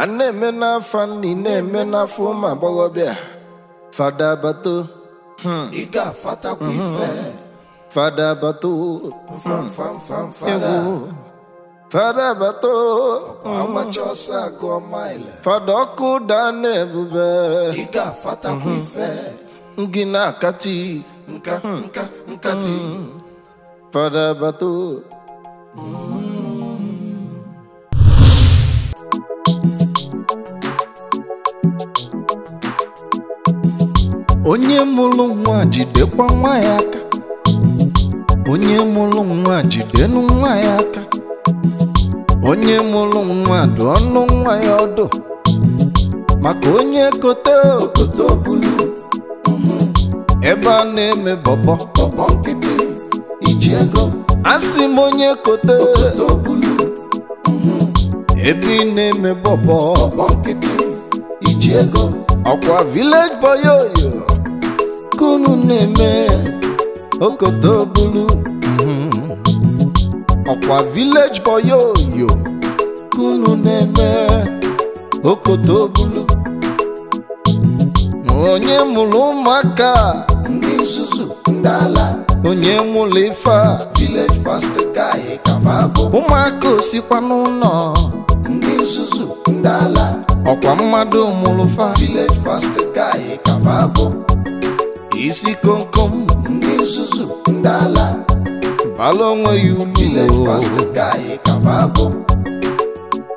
a na-eme n'afọ nni na-eme n'afọ ụmụ agbọghọbịa fada bato Ịga hmm. ga-afatakwa hmm, hmm, ife fada bato egwu fada bato agbacha agụọ maịlị Fadọkụ ọkụ daa na ebube ị ga-afatakwa ife gị na-akati nka nka nkati fada bato onye mụrụ nwa jidekwa nwa ya aka onye mụrụ nwa jidenụ nwa ya aka onye mụrụ nwa dụ ọnụ nwa ya ọdụ maka onye kote okote obulu ebe a na-eme bọbọ bọbọ nkịtị iji ego asị m onye kote okote obulu ebe ị na-eme bọbọ bọbọ nkịtị iji ego ọkwa village boy oyo Kunu na-eme okoto bulu ọkwa village boy oyo nke unu na-eme okoto bulu onye mụrụ ụmụaka ndị nzuzu ndị ala onye nwụrụ ife village pastor guy abụọ. ụmụaka osikwa n'ụlọ ndị nzuzu ndị ala ọkwa mmadụ mụrụ fa village pastor guy kababụ isi komkom ndị nzuzu ndị ala bala onwe ya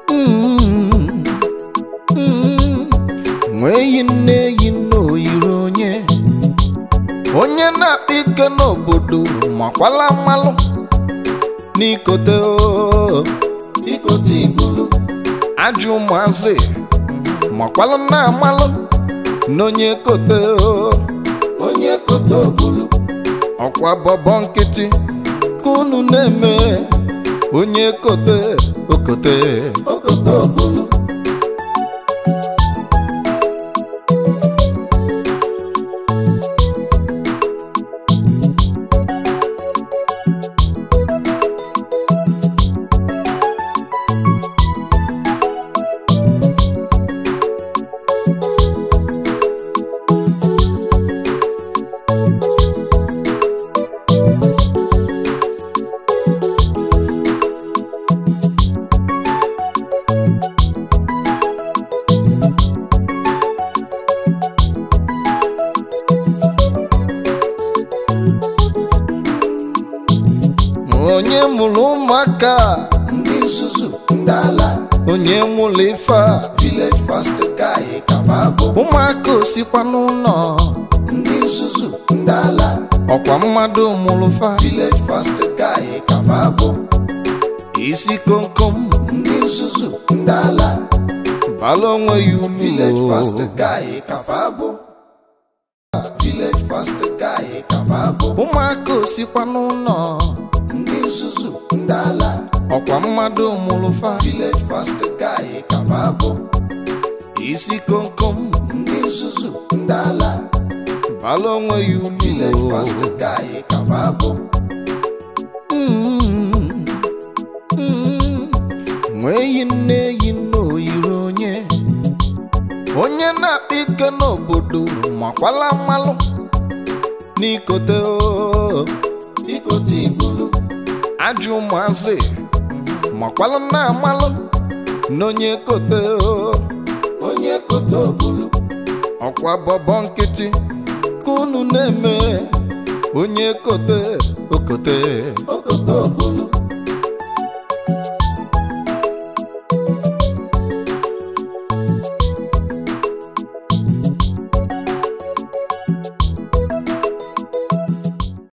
umu mm-hmm. nweeyi nne eyi nne oyiri onye onye na-akpa ike n'obodo makwala mmalụ n'ikote oh, ikote igulu ajụ ụmụazị makwala na amalụ n'onye kote oh. ọkwa bọbọ nkịtị ka unu na-eme onye kote okote mmadụ mụrụ fa Gilead fast ka anyị kafa abụ isi komkom ndị nzuzu ndị ala bala onwe ya ume Gilead fast ka anyị kafa abụ Gilead fast ka anyị kafa abụ ụmụaka osikwa n'ụlọ ndị nzuzu ndị ala ọkwa mmadụ mụrụ fa Gilead fast ka anyị kafa abụ isi komkom ndị nzuzu ndị ala onwe ya ugwu nwa eyi nne eyi nne oyiri onye onye na-akpa ike n'obodo makwala mmalụ n'ikote ikote igulu ajụ ụmụazị makwala na-amalụ n'onye kote onye kote obulu ọkwa bọbọ nkịtị ka unu na-eme onye kote okote okote okunu